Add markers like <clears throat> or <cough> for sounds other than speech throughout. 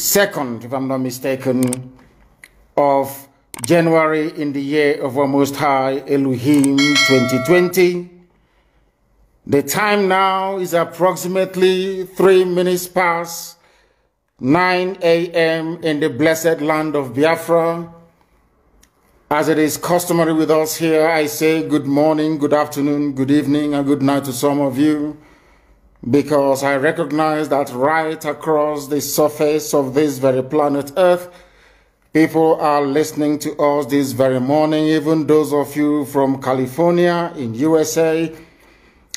2nd, if I'm not mistaken, of January in the year of our Most High Elohim 2020. The time now is approximately 3 minutes past 9 a.m. in the blessed land of Biafra. As it is customary with us here, I say good morning, good afternoon, good evening, and good night to some of you because I recognize that right across the surface of this very planet Earth, people are listening to us this very morning, even those of you from California in USA.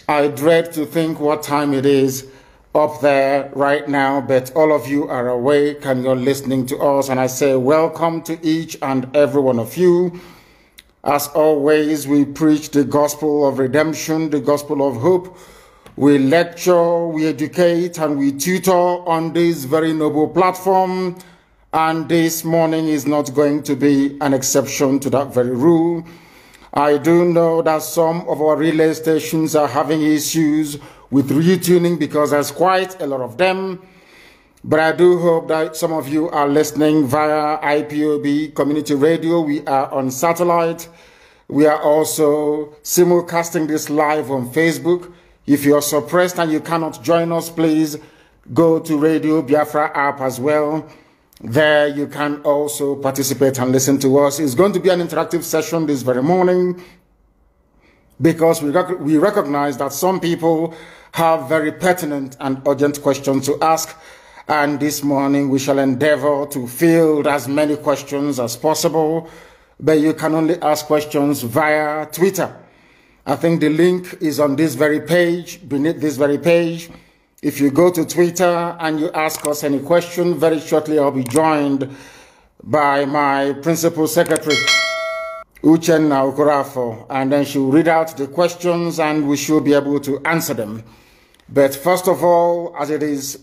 I dread to think what time it is up there right now, but all of you are awake and you're listening to us. And I say, welcome to each and every one of you. As always, we preach the gospel of redemption, the gospel of hope we lecture, we educate, and we tutor on this very noble platform. And this morning is not going to be an exception to that very rule. I do know that some of our relay stations are having issues with retuning because there's quite a lot of them. But I do hope that some of you are listening via IPOB community radio. We are on satellite. We are also simulcasting this live on Facebook. If you're suppressed and you cannot join us, please go to Radio Biafra app as well. There you can also participate and listen to us. It's going to be an interactive session this very morning because we, rec we recognize that some people have very pertinent and urgent questions to ask. And this morning we shall endeavor to field as many questions as possible. But you can only ask questions via Twitter I think the link is on this very page, beneath this very page. If you go to Twitter and you ask us any question, very shortly I'll be joined by my principal secretary, Uchen Naukorafo, and then she'll read out the questions and we should be able to answer them. But first of all, as it is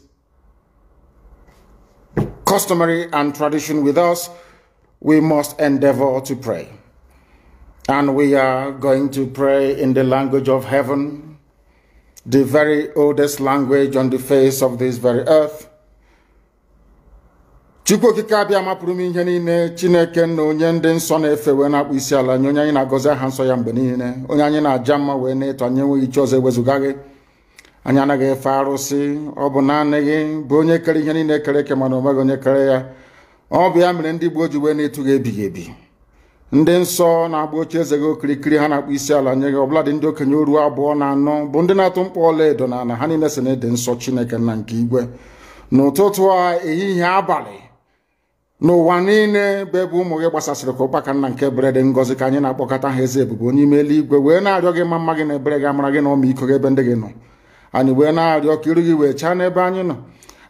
customary and tradition with us, we must endeavor to pray. And we are going to pray in the language of heaven, the very oldest language on the face of this very earth. chukwu okike abịa mapụrụ m ihe niile chineke na onye ndị nsọ na-efe wee na-akpụ isi ala nye onye anyị na-agọzi aha nsọ ya mgbe niile onye anyị na-aja mma wee na-eto anyị enweghị chi ọzọ ewezụga gị anyị anaghị efe arụsị ọ bụ naanị gị bụ onye kere ihe niile kere eke mana o meghị onye kere ya ọ bụ ya mere ndị Igbo ji wee na-etu gị ebighị ebi ndị nsọ na-agba eze gị okirikiri ha na-akpụ isi ala nye gị ọbụladị ndị okenye oruo abụọ na anọ bụ ndị na-atụ mkpọ ọla edo na ana ha niile si na ede nsọ chineke na nke igwe n'ụtụtụ a ehihie abalị n'ụwa niile bụ ebe ụmụ gị gbasasịrị ka ụkpaka nna nke berede ngozi ka anyị na-akpọkọta ha eze ebubo onye ime eluigwe wee na-arịọ gị ma mma gị na ebere gị amara gị na ọmịiko gị ebe ndị gị nọ anyị wee na-arịọ ka iru gị wee chaa n'ebe anyị nọ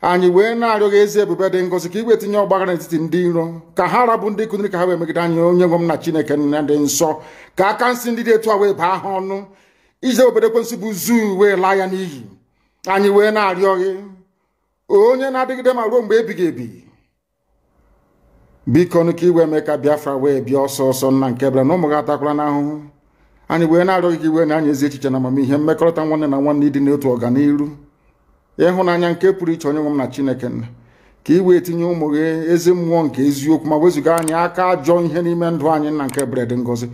anyị wee na-arịọghị ezi ebube dị ngọzi ka iwe tinye ọgbaghara n'etiti ndị iro ka ha rabụ ndị kụziri ka ha wee megide anyị onye nwe m na chineke nna dị nsọ ka aka nsị ndị dị etu a wee baa ha ọnụ ije obodo ekwensị bụ zuu wee laa ya n'iyi anyị wee na-arịọghị onye na-adịgide ma ruo mgbe ebighị ebi biko nụ ka iwe mee ka biafra wee bịa ọsọ ọsọ nna nke bịara na ụmụ gị atakwala n'ahụhụ anyị wee na-arịọghị ka iwe na anyị ezi echiche na amamihe mmekọrịta nwanne na nwanne ịdị n'otu ọganiru ịhụnanya nke pụrụ iche onye nwe m na chineke nna ka ị wee tinye ụmụ gị ezi mmụọ nke eziokwu ma wezụga anyị aka ajọ ihe n'ime ndụ anyị nna nke bred ngozi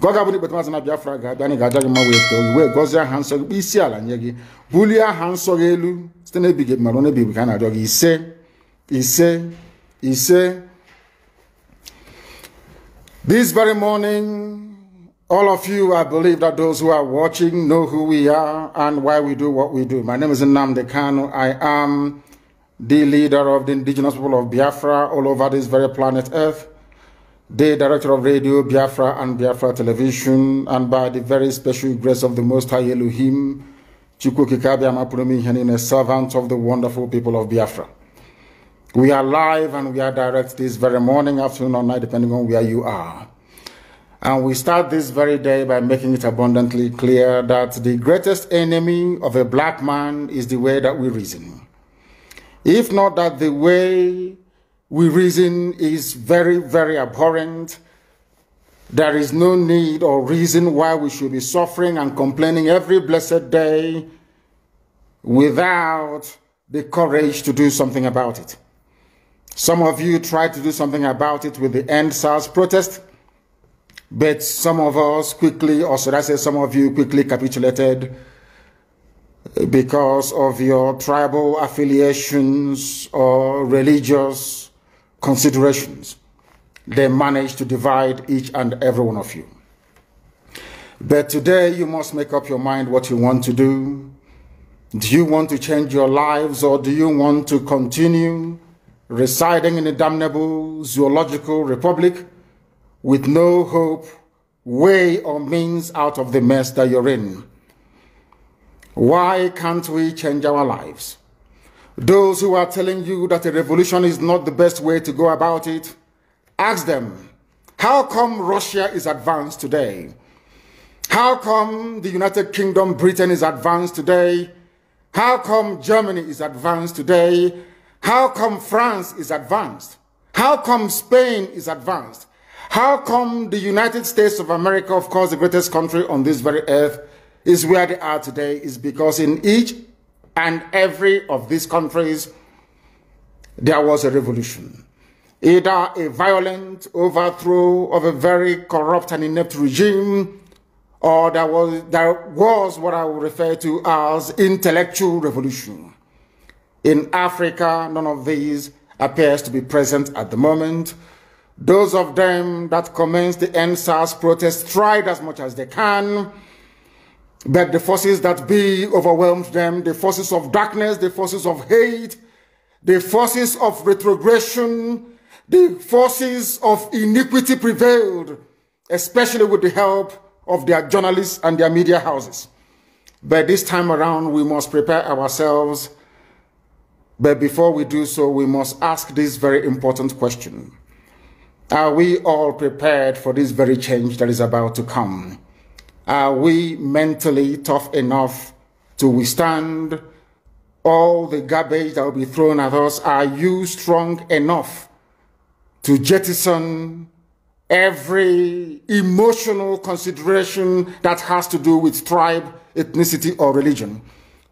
gọ gabụrụ ikpetamazụ na biafra ga-abịa anyị ga-aja gị ma wee too gị wee gọzie aha nsọ gị isi ala nye gị bulie aha nsọ gị elu site na ebighị mmadụ na ebighị ka a na-arịọ gị ise ise ise this very morning All of you, I believe that those who are watching know who we are and why we do what we do. My name is Nnamdi Kanu. I am the leader of the indigenous people of Biafra all over this very planet Earth, the director of radio Biafra and Biafra television, and by the very special grace of the Most High Elohim, Chukwukikabiamapunomihenin, a servant of the wonderful people of Biafra. We are live and we are direct this very morning, afternoon, or night, depending on where you are. And we start this very day by making it abundantly clear that the greatest enemy of a black man is the way that we reason. If not that the way we reason is very, very abhorrent, there is no need or reason why we should be suffering and complaining every blessed day without the courage to do something about it. Some of you tried to do something about it with the End South protest. But some of us quickly, or should I say, some of you quickly capitulated because of your tribal affiliations or religious considerations. They managed to divide each and every one of you. But today you must make up your mind what you want to do. Do you want to change your lives or do you want to continue residing in a damnable zoological republic? with no hope, way, or means out of the mess that you're in. Why can't we change our lives? Those who are telling you that a revolution is not the best way to go about it, ask them, how come Russia is advanced today? How come the United Kingdom, Britain is advanced today? How come Germany is advanced today? How come France is advanced? How come Spain is advanced? How come the United States of America, of course, the greatest country on this very earth, is where they are today is because in each and every of these countries, there was a revolution. Either a violent overthrow of a very corrupt and inept regime, or there was, there was what I would refer to as intellectual revolution. In Africa, none of these appears to be present at the moment. Those of them that commenced the NSAS protest tried as much as they can, but the forces that be overwhelmed them, the forces of darkness, the forces of hate, the forces of retrogression, the forces of iniquity prevailed, especially with the help of their journalists and their media houses. But this time around, we must prepare ourselves. But before we do so, we must ask this very important question. Are we all prepared for this very change that is about to come? Are we mentally tough enough to withstand all the garbage that will be thrown at us? Are you strong enough to jettison every emotional consideration that has to do with tribe, ethnicity, or religion?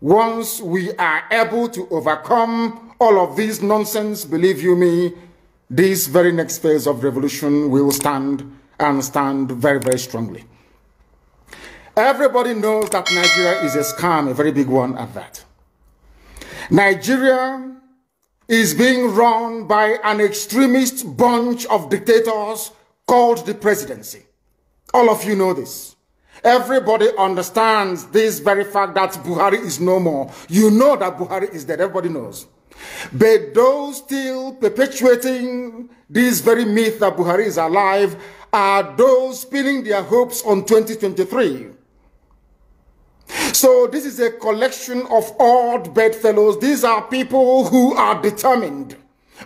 Once we are able to overcome all of this nonsense, believe you me, this very next phase of revolution will stand and stand very, very strongly. Everybody knows that Nigeria is a scam, a very big one at that. Nigeria is being run by an extremist bunch of dictators called the presidency. All of you know this. Everybody understands this very fact that Buhari is no more. You know that Buhari is dead. Everybody knows. But those still perpetuating this very myth that Buhari is alive are those pinning their hopes on 2023. So this is a collection of odd bedfellows. These are people who are determined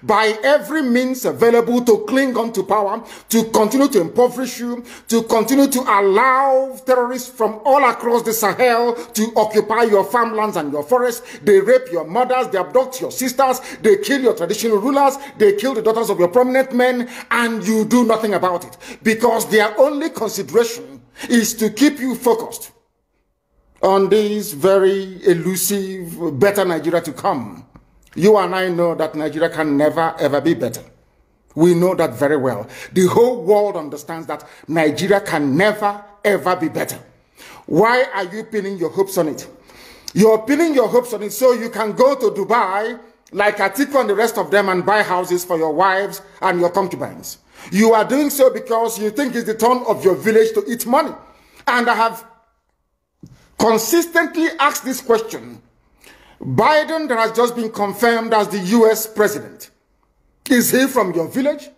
by every means available to cling on to power, to continue to impoverish you, to continue to allow terrorists from all across the Sahel to occupy your farmlands and your forests. They rape your mothers, they abduct your sisters, they kill your traditional rulers, they kill the daughters of your prominent men, and you do nothing about it because their only consideration is to keep you focused on this very elusive, better Nigeria to come. You and I know that Nigeria can never ever be better. We know that very well. The whole world understands that Nigeria can never ever be better. Why are you pinning your hopes on it? You're pinning your hopes on it so you can go to Dubai like Atiku and the rest of them and buy houses for your wives and your concubines. You are doing so because you think it's the turn of your village to eat money. And I have consistently asked this question Biden that has just been confirmed as the U.S. president. Is he from your village?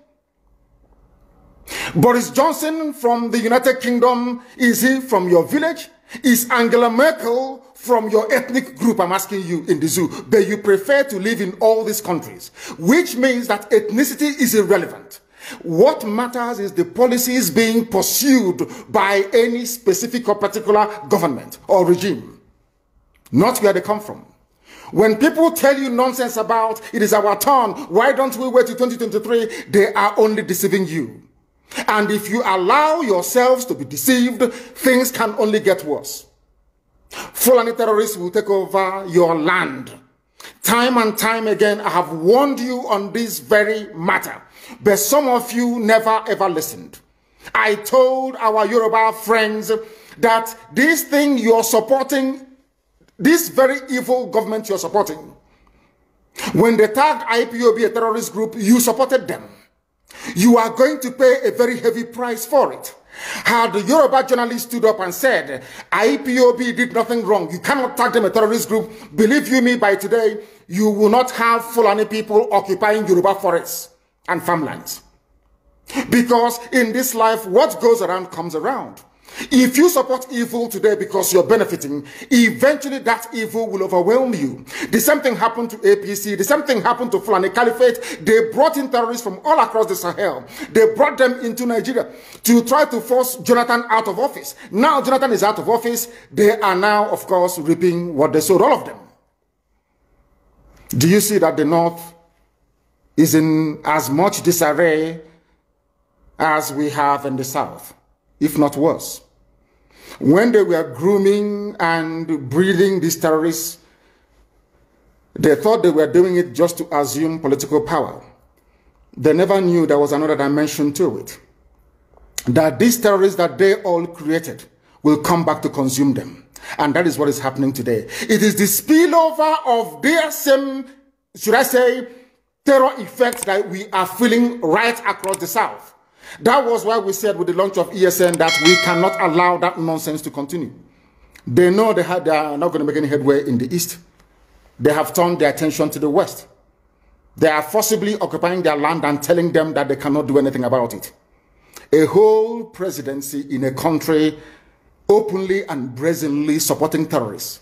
Boris Johnson from the United Kingdom, is he from your village? Is Angela Merkel from your ethnic group, I'm asking you in the zoo, but you prefer to live in all these countries, which means that ethnicity is irrelevant. What matters is the policies being pursued by any specific or particular government or regime, not where they come from. When people tell you nonsense about it is our turn, why don't we wait till 2023? They are only deceiving you. And if you allow yourselves to be deceived, things can only get worse. Fulani terrorists will take over your land. Time and time again, I have warned you on this very matter, but some of you never ever listened. I told our Yoruba friends that this thing you're supporting this very evil government you're supporting, when they tagged IPOB a terrorist group, you supported them. You are going to pay a very heavy price for it. Had the Yoruba journalist stood up and said, IPOB did nothing wrong, you cannot tag them a terrorist group, believe you me, by today, you will not have Fulani people occupying Yoruba forests and farmlands. Because in this life, what goes around comes around. If you support evil today because you're benefiting, eventually that evil will overwhelm you. The same thing happened to APC. The same thing happened to Fulani Caliphate. They brought in terrorists from all across the Sahel. They brought them into Nigeria to try to force Jonathan out of office. Now Jonathan is out of office. They are now, of course, reaping what they sowed, all of them. Do you see that the North is in as much disarray as we have in the South? if not worse. When they were grooming and breeding these terrorists, they thought they were doing it just to assume political power. They never knew there was another dimension to it. That these terrorists that they all created will come back to consume them. And that is what is happening today. It is the spillover of their same, should I say, terror effects that we are feeling right across the South. That was why we said with the launch of ESN that we cannot allow that nonsense to continue. They know they, have, they are not going to make any headway in the East. They have turned their attention to the West. They are forcibly occupying their land and telling them that they cannot do anything about it. A whole presidency in a country openly and brazenly supporting terrorists.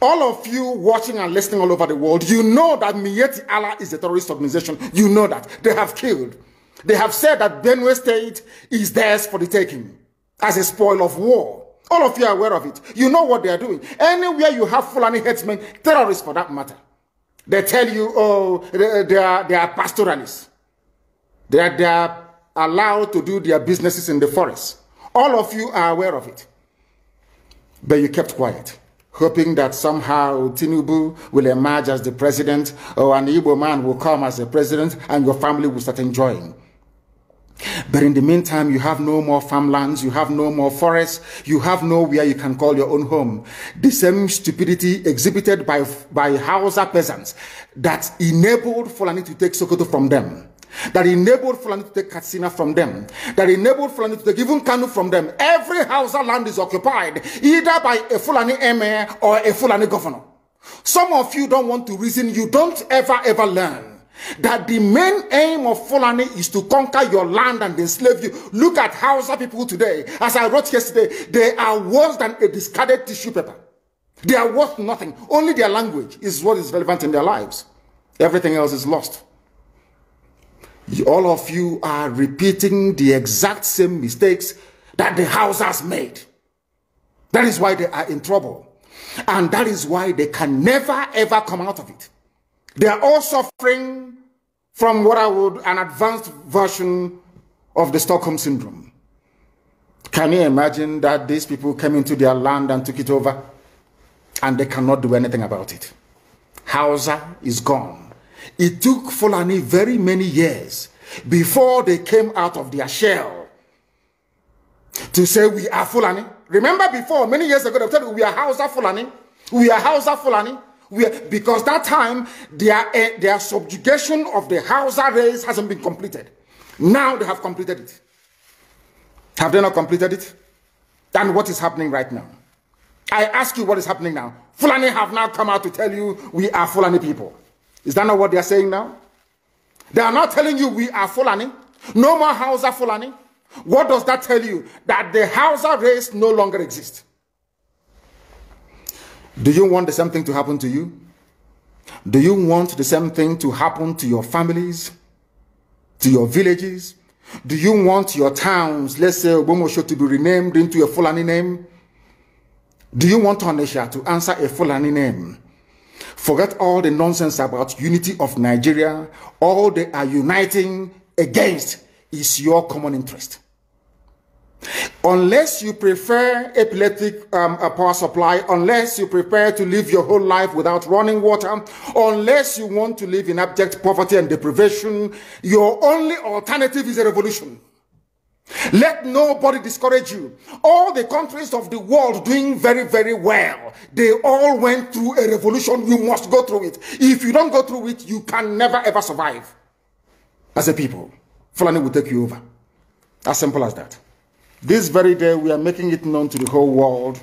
All of you watching and listening all over the world, you know that Mieti Allah is a terrorist organization. You know that. They have killed they have said that Benue State is theirs for the taking as a spoil of war. All of you are aware of it. You know what they are doing. Anywhere you have Fulani headsmen, terrorists for that matter, they tell you, oh, they, are, they are pastoralists. They are, they are allowed to do their businesses in the forest. All of you are aware of it. But you kept quiet, hoping that somehow Tinubu will emerge as the president or an Igbo man will come as the president and your family will start enjoying. But in the meantime, you have no more farmlands, you have no more forests, you have nowhere you can call your own home. The same stupidity exhibited by, by Hausa peasants that enabled Fulani to take Sokoto from them, that enabled Fulani to take Katsina from them, that enabled Fulani to take even Kanu from them. Every Hausa land is occupied either by a Fulani emir or a Fulani governor. Some of you don't want to reason, you don't ever, ever learn that the main aim of Fulani is to conquer your land and enslave you. Look at Hausa people today. As I wrote yesterday, they are worse than a discarded tissue paper. They are worth nothing. Only their language is what is relevant in their lives. Everything else is lost. All of you are repeating the exact same mistakes that the Hausas made. That is why they are in trouble. And that is why they can never ever come out of it. They are all suffering from what I would an advanced version of the Stockholm syndrome. Can you imagine that these people came into their land and took it over and they cannot do anything about it? Hausa is gone. It took Fulani very many years before they came out of their shell to say we are Fulani. Remember before, many years ago, they told you we are Hausa Fulani. We are Hausa Fulani because that time, their, eh, their subjugation of the Hausa race hasn't been completed. Now they have completed it. Have they not completed it? Then what is happening right now? I ask you what is happening now. Fulani have now come out to tell you we are Fulani people. Is that not what they are saying now? They are not telling you we are Fulani. No more Hausa Fulani. What does that tell you? That the Hausa race no longer exists. Do you want the same thing to happen to you? Do you want the same thing to happen to your families, to your villages? Do you want your towns, let's say Obomosho, to be renamed into a Fulani name? Do you want Onisha to answer a Fulani name? Forget all the nonsense about unity of Nigeria. All they are uniting against is your common interest. Unless you prefer epileptic um, power supply, unless you prepare to live your whole life without running water, unless you want to live in abject poverty and deprivation, your only alternative is a revolution. Let nobody discourage you. All the countries of the world doing very, very well. They all went through a revolution. You must go through it. If you don't go through it, you can never ever survive. As a people, Fulani will take you over. As simple as that. This very day, we are making it known to the whole world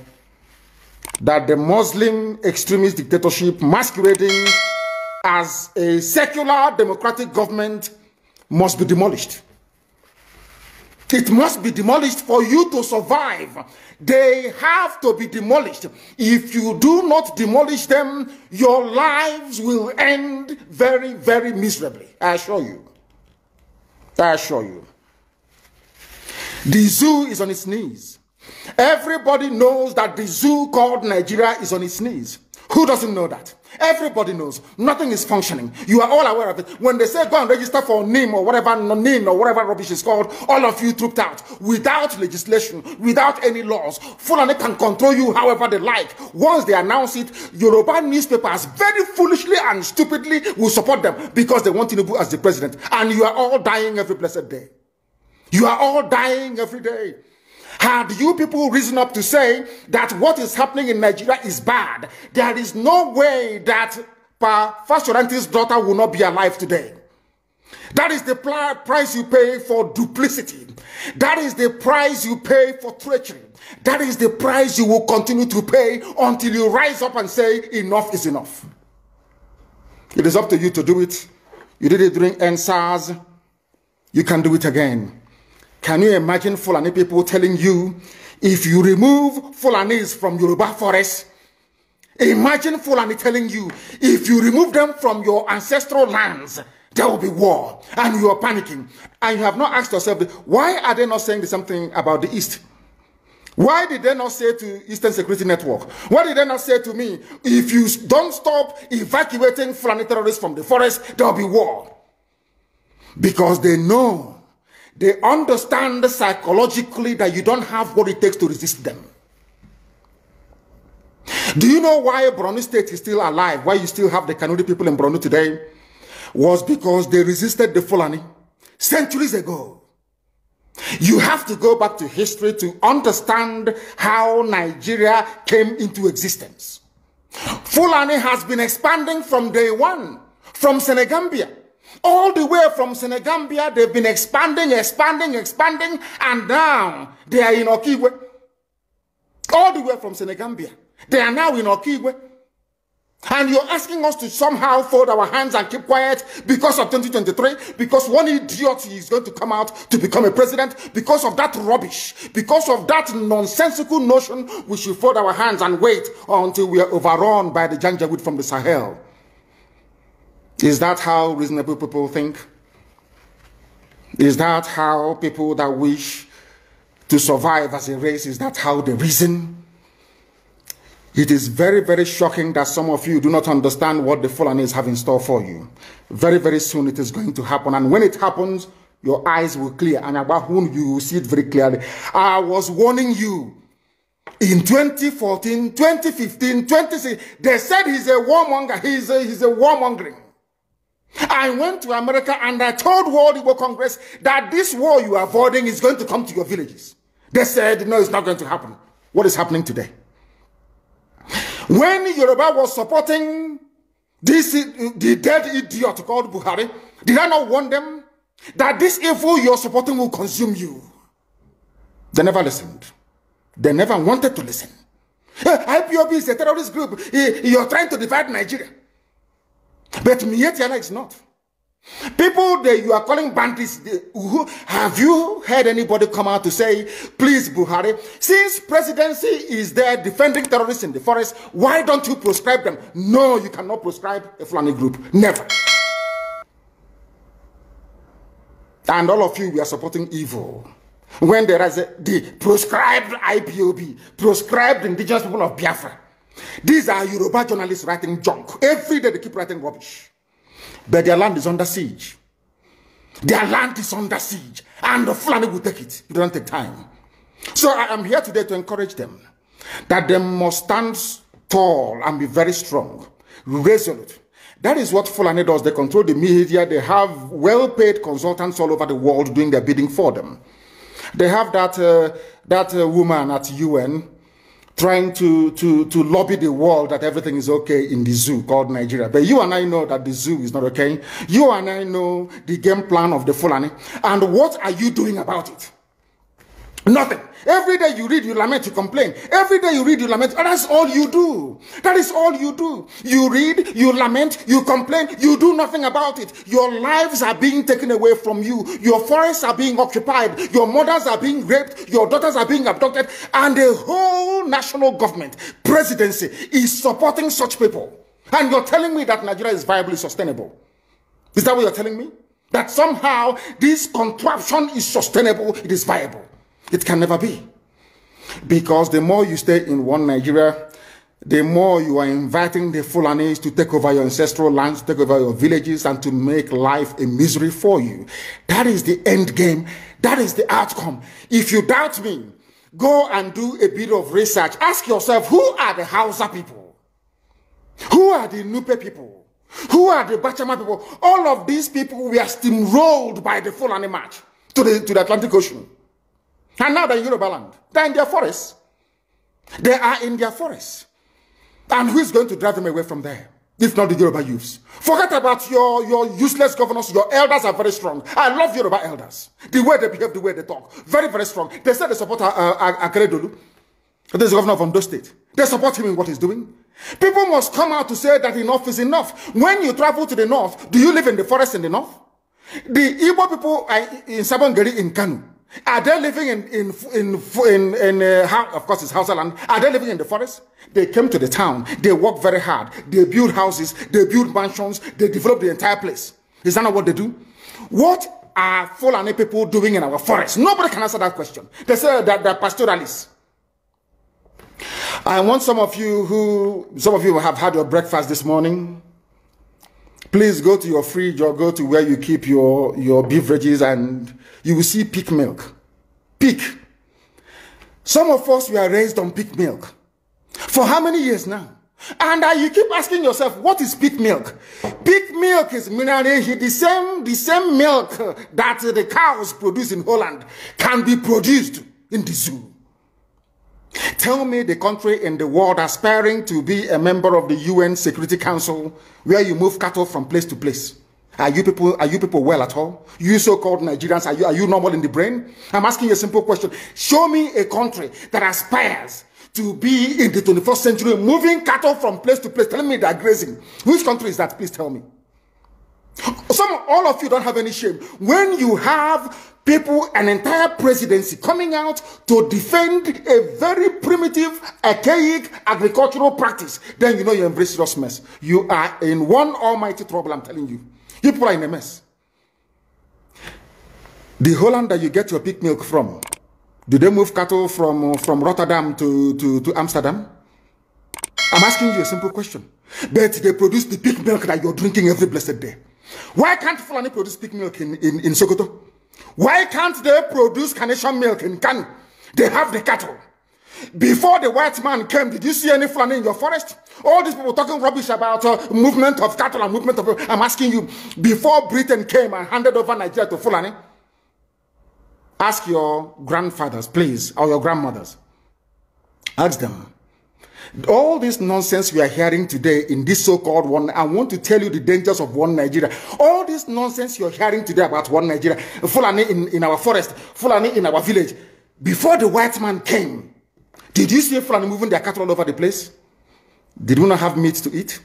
that the Muslim extremist dictatorship masquerading as a secular democratic government must be demolished. It must be demolished for you to survive. They have to be demolished. If you do not demolish them, your lives will end very, very miserably. I assure you. I assure you. The zoo is on its knees. Everybody knows that the zoo called Nigeria is on its knees. Who doesn't know that? Everybody knows. Nothing is functioning. You are all aware of it. When they say go and register for NIM or whatever NIN or whatever rubbish is called, all of you trooped out without legislation, without any laws. Fulani can control you however they like. Once they announce it, Yoruba newspapers very foolishly and stupidly will support them because they want Tinubu as the president. And you are all dying every blessed day. You are all dying every day. Had you people risen up to say that what is happening in Nigeria is bad, there is no way that Pa Fashoranti's daughter will not be alive today. That is the price you pay for duplicity. That is the price you pay for treachery. That is the price you will continue to pay until you rise up and say, enough is enough. It is up to you to do it. You did it during NSAS. You can do it again. Can you imagine Fulani people telling you, if you remove Fulanis from Yoruba forest, imagine Fulani telling you, if you remove them from your ancestral lands, there will be war. And you are panicking. And you have not asked yourself, why are they not saying something about the East? Why did they not say to Eastern Security Network? Why did they not say to me, if you don't stop evacuating Fulani terrorists from the forest, there will be war? Because they know they understand psychologically that you don't have what it takes to resist them. Do you know why Brunei State is still alive? Why you still have the Kanuri people in Brunei today? Was because they resisted the Fulani centuries ago. You have to go back to history to understand how Nigeria came into existence. Fulani has been expanding from day one, from Senegambia. All the way from Senegambia, they've been expanding, expanding, expanding, and now they are in Okigwe. All the way from Senegambia, they are now in Okigwe. And you're asking us to somehow fold our hands and keep quiet because of 2023, because one idiot is going to come out to become a president, because of that rubbish, because of that nonsensical notion, we should fold our hands and wait until we are overrun by the Janjaweed from the Sahel. Is that how reasonable people think? Is that how people that wish to survive as a race, is that how they reason? It is very, very shocking that some of you do not understand what the fallen have in store for you. Very, very soon it is going to happen. And when it happens, your eyes will clear. And about whom you will see it very clearly. I was warning you in 2014, 2015, 2016. They said he's a warmonger. He's a, he's a warmongering. I went to America and I told World Igbo Congress that this war you are avoiding is going to come to your villages. They said, no, it's not going to happen. What is happening today? When Yoruba was supporting this, the dead idiot called Buhari, did I not warn them that this evil you're supporting will consume you? They never listened. They never wanted to listen. Eh, IPOB is a terrorist group. Eh, you're trying to divide Nigeria. But Mietiana is not. People that you are calling bandits, they, who, have you heard anybody come out to say, please Buhari, since presidency is there defending terrorists in the forest, why don't you proscribe them? No, you cannot proscribe a Fulani group. Never. And all of you, we are supporting evil. When there is a, the proscribed IPOB, proscribed indigenous people of Biafra, these are Yoruba journalists writing junk. Every day they keep writing rubbish. But their land is under siege. Their land is under siege. And the Fulani will take it. It doesn't take time. So I am here today to encourage them that they must stand tall and be very strong, resolute. That is what Fulani does. They control the media. They have well-paid consultants all over the world doing their bidding for them. They have that, uh, that uh, woman at UN trying to, to, to lobby the world that everything is okay in the zoo called Nigeria. But you and I know that the zoo is not okay. You and I know the game plan of the Fulani. And what are you doing about it? Nothing. Every day you read, you lament, you complain. Every day you read, you lament. And that's all you do. That is all you do. You read, you lament, you complain, you do nothing about it. Your lives are being taken away from you. Your forests are being occupied. Your mothers are being raped. Your daughters are being abducted. And the whole national government, presidency, is supporting such people. And you're telling me that Nigeria is viably sustainable. Is that what you're telling me? That somehow this contraption is sustainable, it is viable. It can never be. Because the more you stay in one Nigeria, the more you are inviting the Fulanese to take over your ancestral lands, take over your villages, and to make life a misery for you. That is the end game. That is the outcome. If you doubt me, go and do a bit of research. Ask yourself, who are the Hausa people? Who are the Nupe people? Who are the Bachama people? All of these people were steamrolled by the Fulani march to the, to the Atlantic Ocean. And now they're in Yoruba land. They're in their forests. They are in their forests. And who is going to drive them away from there? If not the Yoruba youths. Forget about your, your useless governors. Your elders are very strong. I love Yoruba elders. The way they behave, the way they talk. Very, very strong. They said they support uh, uh Akeredolu. This governor of Ondo State. They support him in what he's doing. People must come out to say that enough is enough. When you travel to the north, do you live in the forest in the north? The Igbo people are in Sabongeri in Kanu, are they living in, in, in, in, in uh, of course it's Hausa land. Are they living in the forest? They came to the town. They work very hard. They build houses. They build mansions. They develop the entire place. Is that not what they do? What are Fulani people doing in our forest? Nobody can answer that question. They say that they're pastoralists. I want some of you who, some of you have had your breakfast this morning. Please go to your fridge or go to where you keep your, your beverages and you will see pig milk. Pig. Some of us, we are raised on pig milk. For how many years now? And uh, you keep asking yourself, what is pig milk? Pig milk is mineral, the same, the same milk that the cows produce in Holland can be produced in the zoo. Tell me the country in the world aspiring to be a member of the UN Security Council where you move cattle from place to place. Are you people, are you people well at all? You so-called Nigerians, are you, are you normal in the brain? I'm asking a simple question. Show me a country that aspires to be in the 21st century, moving cattle from place to place, Tell me they're grazing. Which country is that? Please tell me. Some, all of you don't have any shame. When you have people, an entire presidency coming out to defend a very primitive, archaic agricultural practice, then you know you embrace serious mess. You are in one almighty trouble, I'm telling you. You people are in a mess. The Holland that you get your pig milk from, do they move cattle from, from Rotterdam to, to, to Amsterdam? I'm asking you a simple question. But they produce the pig milk that you're drinking every blessed day. Why can't Fulani produce pig milk in, in, in Sokoto? Why can't they produce carnation milk in Kanu? They have the cattle. Before the white man came, did you see any Fulani in your forest? All these people talking rubbish about uh, movement of cattle and movement of... I'm asking you, before Britain came and handed over Nigeria to Fulani, ask your grandfathers, please, or your grandmothers. Ask them, all this nonsense we are hearing today in this so-called one, I want to tell you the dangers of one Nigeria. All this nonsense you're hearing today about one Nigeria, Fulani in, in our forest, Fulani in our village. Before the white man came, did you see Fulani moving their cattle all over the place? Did we not have meat to eat?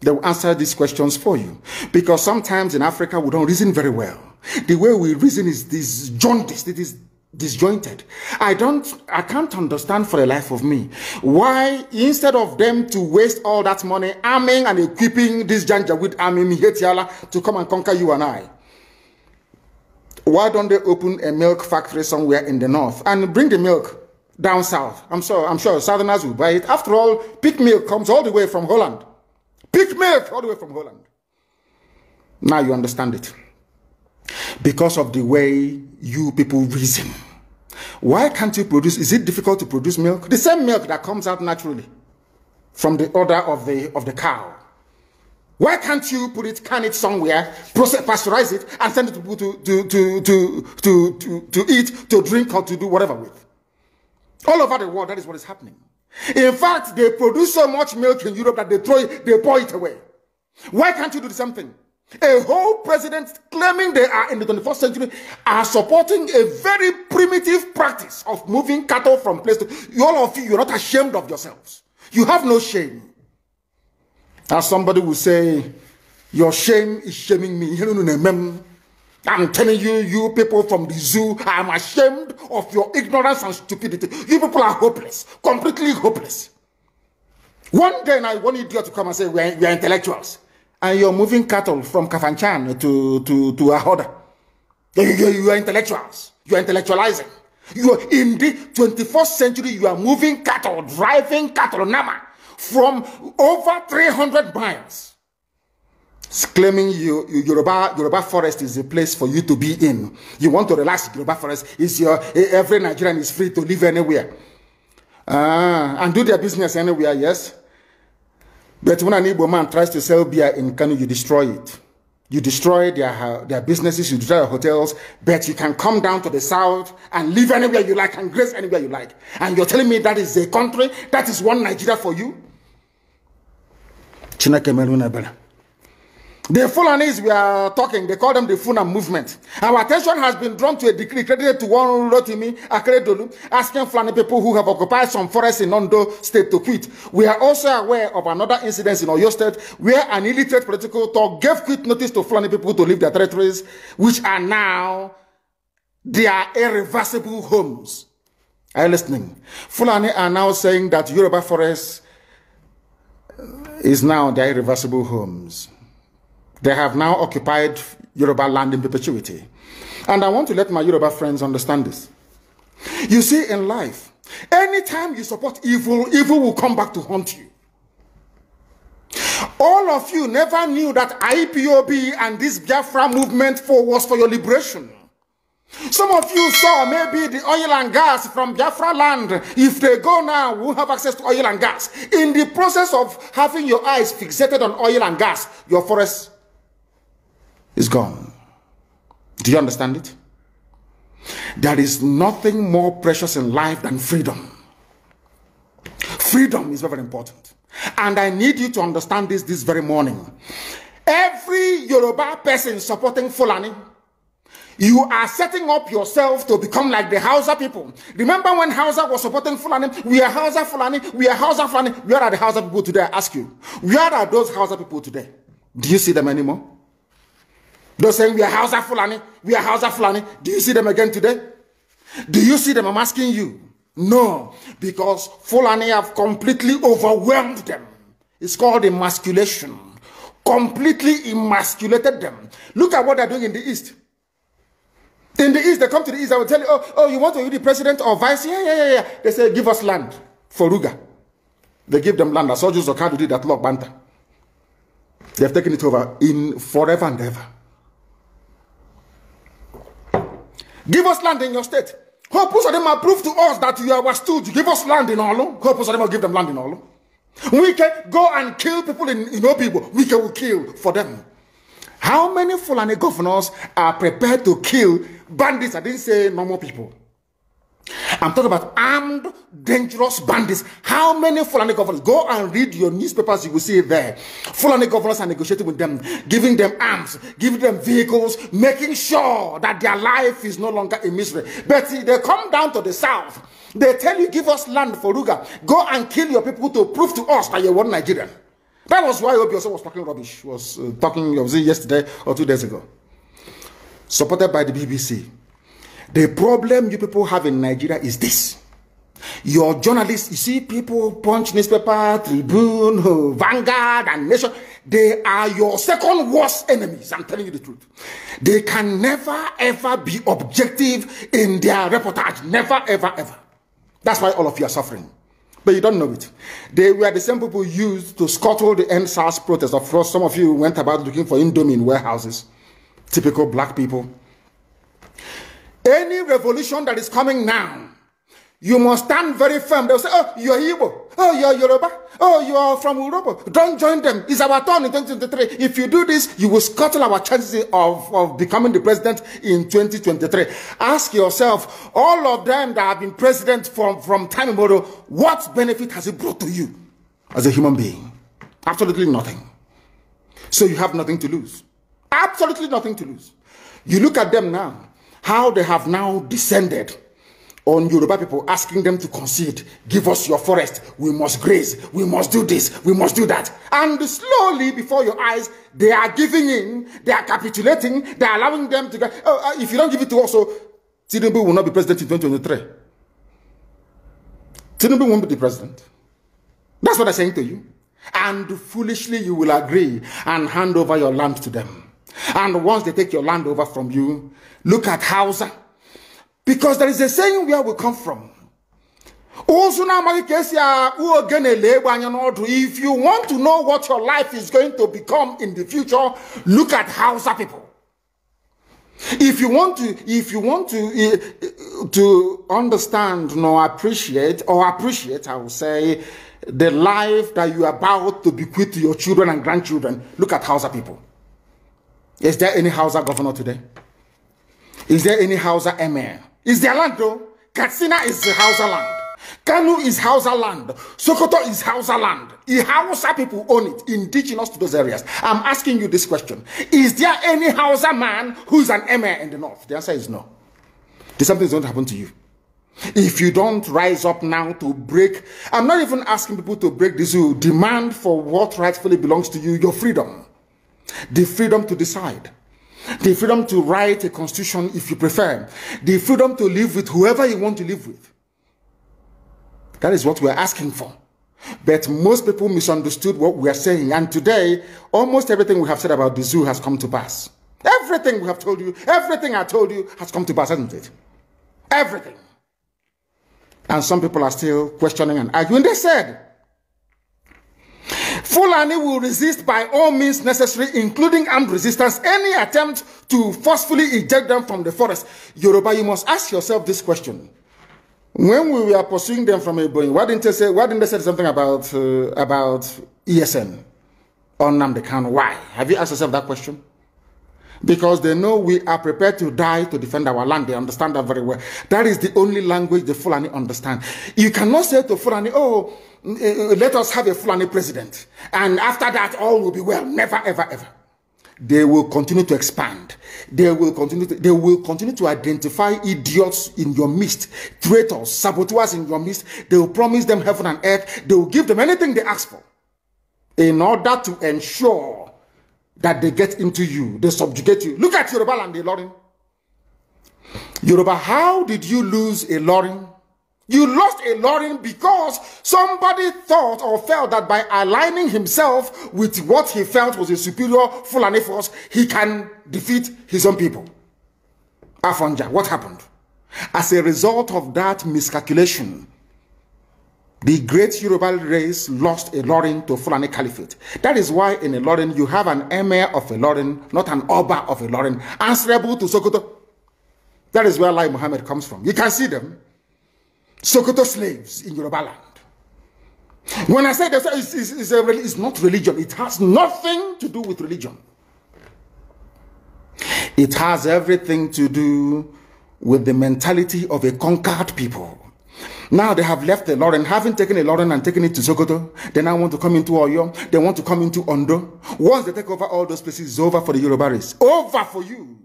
They will answer these questions for you. Because sometimes in Africa, we don't reason very well. The way we reason is this jaundice, it is disjointed. I don't, I can't understand for the life of me why instead of them to waste all that money arming and equipping this Janjaweed army Mihetiala to come and conquer you and I. Why don't they open a milk factory somewhere in the north and bring the milk down south? I'm sure, I'm sure southerners will buy it. After all, pig milk comes all the way from Holland. Pig milk all the way from Holland. Now you understand it. Because of the way you people reason. Why can't you produce? Is it difficult to produce milk? The same milk that comes out naturally from the order of the, of the cow. Why can't you put it, can it somewhere, process, pasteurize it, and send it to people to, to, to, to, to, to, to eat, to drink, or to do whatever with? All over the world, that is what is happening. In fact, they produce so much milk in Europe that they throw it, they pour it away. Why can't you do the same thing? A whole president claiming they are in the 21st century are supporting a very primitive practice of moving cattle from place to all of you, you're not ashamed of yourselves. You have no shame. As somebody will say, your shame is shaming me. I'm telling you, you people from the zoo, I'm ashamed of your ignorance and stupidity. You people are hopeless, completely hopeless. One day I want idiot to come and say, we are, we are intellectuals. and you're moving cattle from Kafanchan to, to, to Ahoda. You, you, you are intellectuals. You are intellectualizing. You are in the 21st century, you are moving cattle, driving cattle, Nama, from over 300 miles. claiming you, you, Yoruba, Yoruba forest is a place for you to be in. You want to relax, Yoruba forest is your, e, every Nigerian is free to live anywhere. ah, and do their business anywhere, yes? But when an Igbo man tries to sell beer in Kanu, you destroy it. You destroy their, uh, their businesses, you destroy their hotels, but you can come down to the south and live anywhere you like and grace anywhere you like. And you're telling me that is a country, that is one Nigeria for you? Chineke Melunabela. The Fulanis we are talking, they call them the Fulham movement. Our attention has been drawn to a decree credited to one Rotimi Akeredolu, asking Fulani people who have occupied some forests in Ondo State to quit. We are also aware of another incident in Oyo State where an illiterate political talk gave quit notice to Fulani people to leave their territories, which are now their irreversible homes. Are you listening? Fulani are now saying that Yoruba forest is now their irreversible homes. They have now occupied Yoruba land in perpetuity. And I want to let my Yoruba friends understand this. You see, in life, anytime you support evil, evil will come back to haunt you. All of you never knew that IPOB and this Biafra movement for was for your liberation. Some of you saw maybe the oil and gas from Biafra land. If they go now, we'll have access to oil and gas. In the process of having your eyes fixated on oil and gas, your forests is gone. Do you understand it? There is nothing more precious in life than freedom. Freedom is very important. And I need you to understand this this very morning. Every Yoruba person supporting Fulani, you are setting up yourself to become like the Hausa people. Remember when Hausa was supporting Fulani? We are Hausa Fulani. We are Hausa Fulani. Where are the Hausa people today? I ask you. Where are those Hausa people today? Do you see them anymore? They're saying we are of Fulani, we are of Fulani. Do you see them again today? Do you see them? I'm asking you. No, because Fulani have completely overwhelmed them. It's called emasculation. Completely emasculated them. Look at what they're doing in the East. In the East, they come to the East, I will tell you, oh, oh, you want to be the president or vice? Yeah, yeah, yeah, yeah. They say, give us land for Ruga. They give them land. I saw Joseph Kadu did that lock banter. They have taken it over in forever and ever. Give us land in your state. Hope them approve to us that you are stood. Give us land in Olu. Hope Usadema give them land in Olu. We can go and kill people in, in people. We can kill for them. How many Fulani governors are prepared to kill bandits? I didn't say normal people. I'm talking about armed, dangerous bandits. How many Fulani governors? Go and read your newspapers, you will see it there. Fulani governors are negotiating with them, giving them arms, giving them vehicles, making sure that their life is no longer a misery. But they come down to the south. They tell you, give us land for Ruga. Go and kill your people to prove to us that you're one Nigerian. That was why Obioso was talking rubbish, was uh, talking, was yesterday or two days ago. Supported by the BBC. The problem you people have in Nigeria is this. Your journalists, you see people punch newspaper, tribune, oh, vanguard, and nation. They are your second worst enemies. I'm telling you the truth. They can never ever be objective in their reportage. Never ever ever. That's why all of you are suffering. But you don't know it. They were the same people used to scuttle the NSAS protest. Of course, some of you went about looking for indomine warehouses. Typical black people. Any revolution that is coming now, you must stand very firm. They'll say, oh, you're Igbo. Oh, you're Yoruba. Oh, you're from Europe." Don't join them. It's our turn in 2023. If you do this, you will scuttle our chances of, of becoming the president in 2023. Ask yourself, all of them that have been president from, from time immemorial, what benefit has it brought to you as a human being? Absolutely nothing. So you have nothing to lose. Absolutely nothing to lose. You look at them now how they have now descended on Yoruba people, asking them to concede, give us your forest, we must graze, we must do this, we must do that. And slowly, before your eyes, they are giving in, they are capitulating, they are allowing them to go. Oh, uh, if you don't give it to us, so Tinubu will not be president in 2023. Tinubu won't be the president. That's what I'm saying to you. And foolishly, you will agree and hand over your land to them. And once they take your land over from you, look at Hausa. Because there is a saying where we come from. If you want to know what your life is going to become in the future, look at Hausa people. If you want to, if you want to, eh, eh, to understand nor appreciate, or appreciate, I will say, the life that you are about to bequeath to your children and grandchildren, look at Hausa people. Is there any Hausa governor today? Is there any Hausa emir? Is there land though? Katsina is Hausa land. Kanu is Hausa land. Sokoto is Hausa land. The Hausa people own it, indigenous to those areas. I'm asking you this question. Is there any Hausa man who's an emir in the north? The answer is no. Something's going to happen to you. If you don't rise up now to break, I'm not even asking people to break this, you demand for what rightfully belongs to you, your freedom the freedom to decide, the freedom to write a constitution if you prefer, the freedom to live with whoever you want to live with. That is what we're asking for. But most people misunderstood what we are saying. And today, almost everything we have said about the zoo has come to pass. Everything we have told you, everything I told you has come to pass, hasn't it? Everything. And some people are still questioning and arguing. They said, Fulani will resist by all means necessary, including armed resistance, any attempt to forcefully eject them from the forest. Yoruba, you must ask yourself this question. When we were pursuing them from Ebony, why didn't they say, why didn't they say something about, uh, about ESN on Namdekan? Why? Have you asked yourself that question? because they know we are prepared to die to defend our land. They understand that very well. That is the only language the Fulani understand. You cannot say to Fulani, oh, eh, eh, let us have a Fulani president. And after that, all will be well. Never, ever, ever. They will continue to expand. They will continue to, they will continue to identify idiots in your midst, traitors, saboteurs in your midst. They will promise them heaven and earth. They will give them anything they ask for in order to ensure that they get into you, they subjugate you. Look at Yoruba land, Ilorin. Yoruba, how did you lose a Ilorin? You lost a Ilorin because somebody thought or felt that by aligning himself with what he felt was a superior Fulani force, he can defeat his own people. Afonja, what happened? As a result of that miscalculation, The great Yoruba race lost a Lorin to Fulani Caliphate. That is why in a Lorin you have an emir of a Lorin, not an Oba of a Lorin, answerable to Sokoto. That is where Lai Muhammad comes from. You can see them. Sokoto slaves in Yoruba land. When I say that, it's, it's, it's, a, it's not religion. It has nothing to do with religion. It has everything to do with the mentality of a conquered people. Now they have left the Lauren, having taken a Lauren and taken it to Sokoto. They now want to come into Oyo. They want to come into Ondo. Once they take over all those places, it's over for the Yorubaris. Over for you.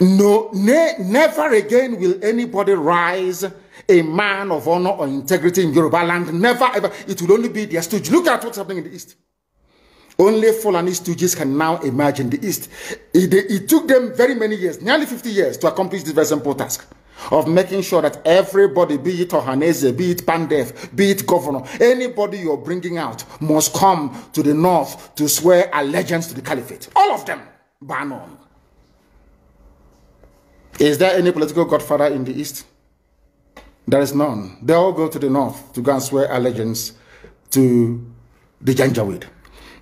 No, ne never again will anybody rise a man of honor or integrity in Yoruba land. Never ever. It will only be their stooge. Look at what's happening in the East. Only Fulani stooges can now imagine the East. It, it took them very many years, nearly 50 years, to accomplish this very simple task. of making sure that everybody, be it Ohanese, be it Pandef, be it governor, anybody you're bringing out must come to the north to swear allegiance to the caliphate. All of them, ban on. Is there any political godfather in the east? There is none. They all go to the north to go and swear allegiance to the Janjaweed.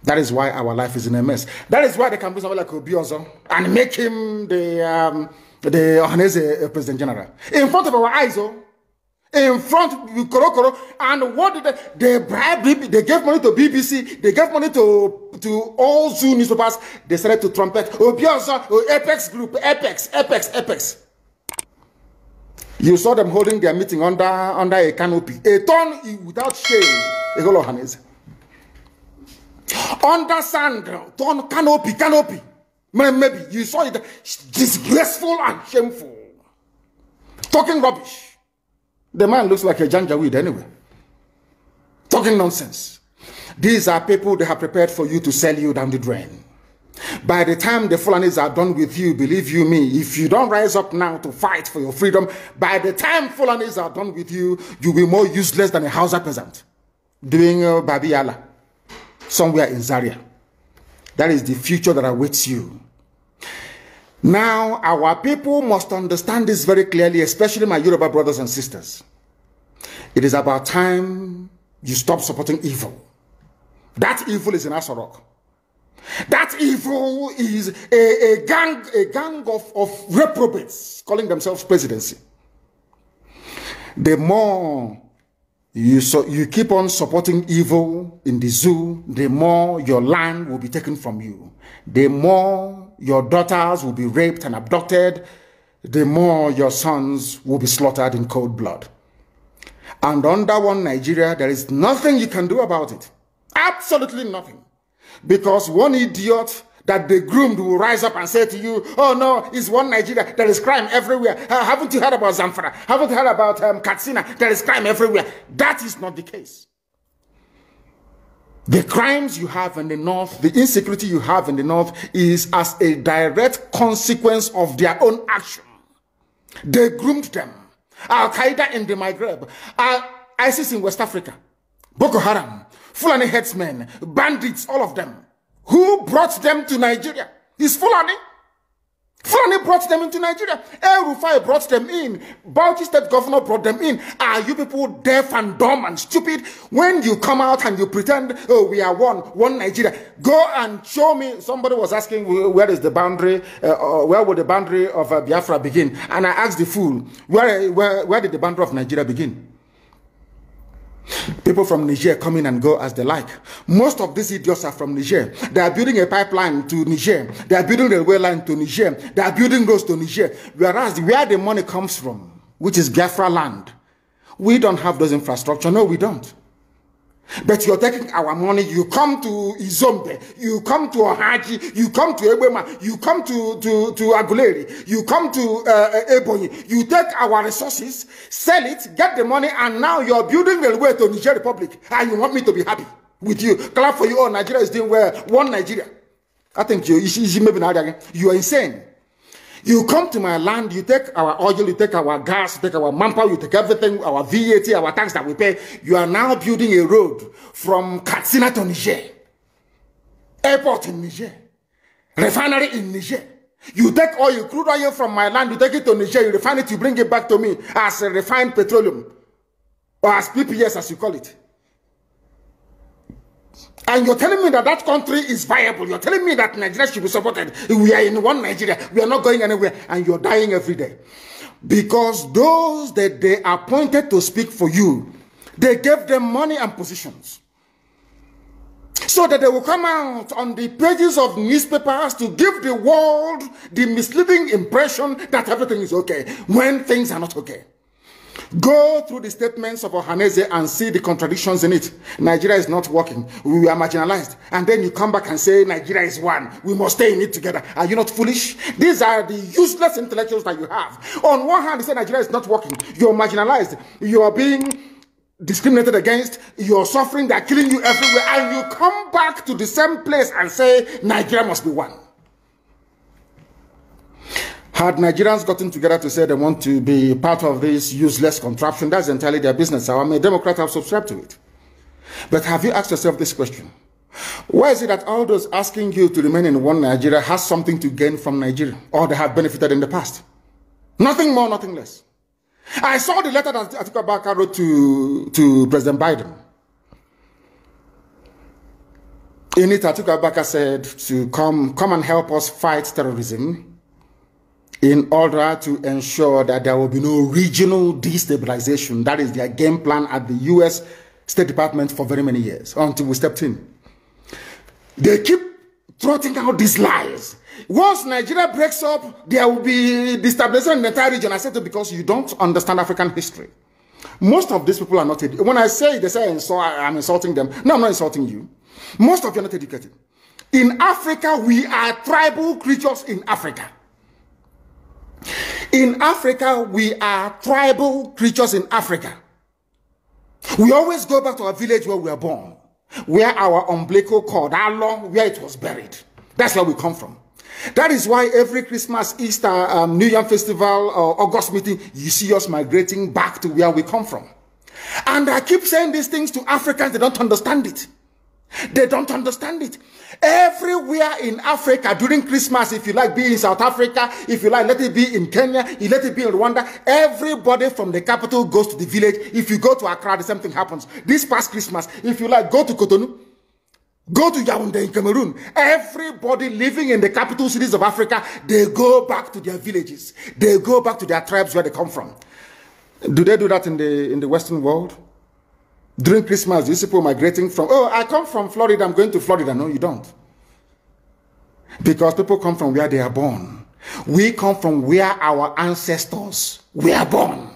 That is why our life is in a mess. That is why they can bring somebody like Obiozo and make him the... Um, the Ohanese uh, President General. In front of our eyes, oh, in front of Koro Koro, and what did they, they bribed, they gave money to BBC, they gave money to, to all Zoo newspapers, they started to trumpet, oh, Bielsa, oh, Apex Group, Apex, Apex, Apex. You saw them holding their meeting under, under a canopy, a ton without shame, a whole Under sand, ton canopy, canopy. Maybe you saw it disgraceful and shameful. Talking rubbish. The man looks like a janjaweed anyway. Talking nonsense. These are people they have prepared for you to sell you down the drain. By the time the Fulanis are done with you, believe you me, if you don't rise up now to fight for your freedom, by the time Fulanis are done with you, you'll be more useless than a Hausa peasant doing uh, yala somewhere in Zaria. That is the future that awaits you. Now, our people must understand this very clearly, especially my Yoruba brothers and sisters. It is about time you stop supporting evil. That evil is in Asorok. That evil is a, a gang, a gang of, of reprobates calling themselves presidency. The more You, so you keep on supporting evil in the zoo, the more your land will be taken from you. The more your daughters will be raped and abducted, the more your sons will be slaughtered in cold blood. And under one Nigeria, there is nothing you can do about it. Absolutely nothing. Because one idiot that the groomed will rise up and say to you, oh no, it's one Nigeria, there is crime everywhere. Uh, haven't you heard about Zamfara? Haven't you heard about um, Katsina? There is crime everywhere. That is not the case. The crimes you have in the north, the insecurity you have in the north is as a direct consequence of their own action. They groomed them. Al-Qaeda in the Maghreb, uh, ISIS in West Africa, Boko Haram, Fulani headsmen, bandits, all of them. Who brought them to Nigeria? Is Fulani. Fulani brought them into Nigeria. El Rufai brought them in. Bauchi state governor brought them in. Are you people deaf and dumb and stupid? When you come out and you pretend, oh, we are one, one Nigeria. Go and show me. Somebody was asking, where is the boundary? Uh, uh, where would the boundary of uh, Biafra begin? And I asked the fool, where, where, where did the boundary of Nigeria begin? People from Niger come in and go as they like. Most of these idiots are from Niger. They are building a pipeline to Niger. They are building a railway line to Niger. They are building roads to Niger. Whereas where the money comes from, which is Gafra land, we don't have those infrastructure. No, we don't. But you're taking our money, you come to Izombe, you come to Ohaji, you come to Ebema, you come to, to, to Aguleri, you come to uh, Ebony, you take our resources, sell it, get the money, and now you're building railway to Niger Republic, and ah, you want me to be happy with you. Clap for you, oh, Nigeria is doing well, one Nigeria. I think you, you, you, you, you are insane. You come to my land, you take our oil, you take our gas, you take our manpower, you take everything, our VAT, our tax that we pay. You are now building a road from Katsina to Niger, airport in Niger, refinery in Niger. You take oil, crude oil from my land, you take it to Niger, you refine it, you bring it back to me as refined petroleum or as PPS as you call it. And you're telling me that that country is viable. You're telling me that Nigeria should be supported. We are in one Nigeria. We are not going anywhere. And you're dying every day. Because those that they appointed to speak for you, they gave them money and positions. So that they will come out on the pages of newspapers to give the world the misleading impression that everything is okay when things are not okay. Go through the statements of Ohaneze and see the contradictions in it. Nigeria is not working. We are marginalized. And then you come back and say, Nigeria is one. We must stay in it together. Are you not foolish? These are the useless intellectuals that you have. On one hand, you say Nigeria is not working. You are marginalized. You are being discriminated against, You are suffering, They are killing you everywhere, and you come back to the same place and say, Nigeria must be one. Had Nigerians gotten together to say they want to be part of this useless contraption, that's entirely their business. I mean, Democrats have subscribed to it. But have you asked yourself this question? Why is it that all those asking you to remain in one Nigeria has something to gain from Nigeria or they have benefited in the past? Nothing more, nothing less. I saw the letter that Atiku Abubakar wrote to, to President Biden. In it, Atiku Abubakar said to come, come and help us fight terrorism in order to ensure that there will be no regional destabilization. That is their game plan at the US State Department for very many years until we stepped in. They keep trotting out these lies. Once Nigeria breaks up, there will be destabilization in the entire region. I said it because you don't understand African history. Most of these people are not. educated. When I say they say I'm insulting them, no, I'm not insulting you. Most of you are not educated. In Africa, we are tribal creatures in Africa. In Africa, we are tribal creatures in Africa. We always go back to our village where we were born, where our umbilical cord, our long, where it was buried. That's where we come from. That is why every Christmas, Easter, um, New Year festival, uh, August meeting, you see us migrating back to where we come from. And I keep saying these things to Africans, they don't understand it. They don't understand it. Everywhere in Africa during Christmas, if you like, be in South Africa, if you like, let it be in Kenya, let it be in Rwanda. Everybody from the capital goes to the village. If you go to Accra, the same thing happens. This past Christmas, if you like, go to Cotonou. Go to Yaoundé in Cameroon. Everybody living in the capital cities of Africa, they go back to their villages. They go back to their tribes where they come from. Do they do that in the in the Western world? During Christmas, you see people migrating from, oh, I come from Florida, I'm going to Florida. No, you don't. Because people come from where they are born. We come from where our ancestors were born.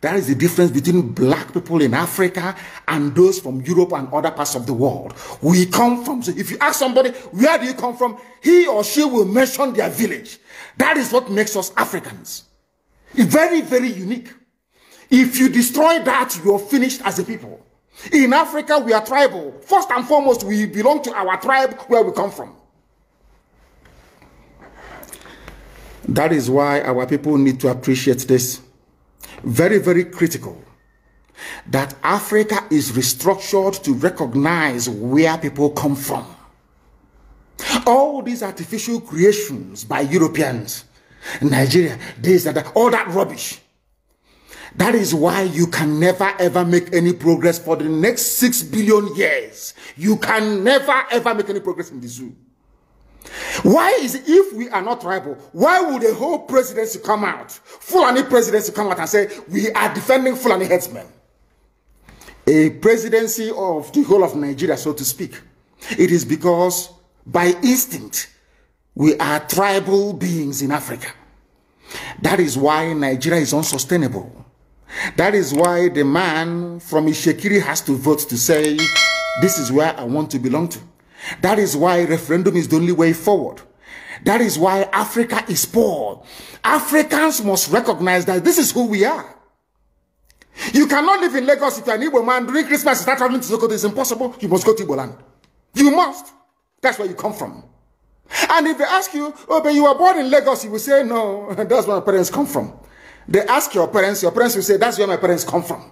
That is the difference between black people in Africa and those from Europe and other parts of the world. We come from, so if you ask somebody, where do you come from? He or she will mention their village. That is what makes us Africans. It's very, very unique. If you destroy that, you're finished as a people. In Africa, we are tribal. First and foremost, we belong to our tribe where we come from. That is why our people need to appreciate this. Very, very critical that Africa is restructured to recognize where people come from. All these artificial creations by Europeans, Nigeria, this and that, all that rubbish That is why you can never ever make any progress for the next six billion years. You can never ever make any progress in the zoo. Why is if we are not tribal, why would the whole presidency come out, Fulani presidency come out and say we are defending Fulani headsmen? A presidency of the whole of Nigeria, so to speak. It is because by instinct we are tribal beings in Africa. That is why Nigeria is unsustainable. That is why the man from Ishekiri has to vote to say, this is where I want to belong to. That is why referendum is the only way forward. That is why Africa is poor. Africans must recognize that this is who we are. You cannot live in Lagos if you're an Igbo man during Christmas start traveling to Sokoto. It's impossible. You must go to Igbo You must. That's where you come from. And if they ask you, oh, but you were born in Lagos, you will say, no, <laughs> that's where my parents come from. They ask your parents, your parents will say, that's where my parents come from.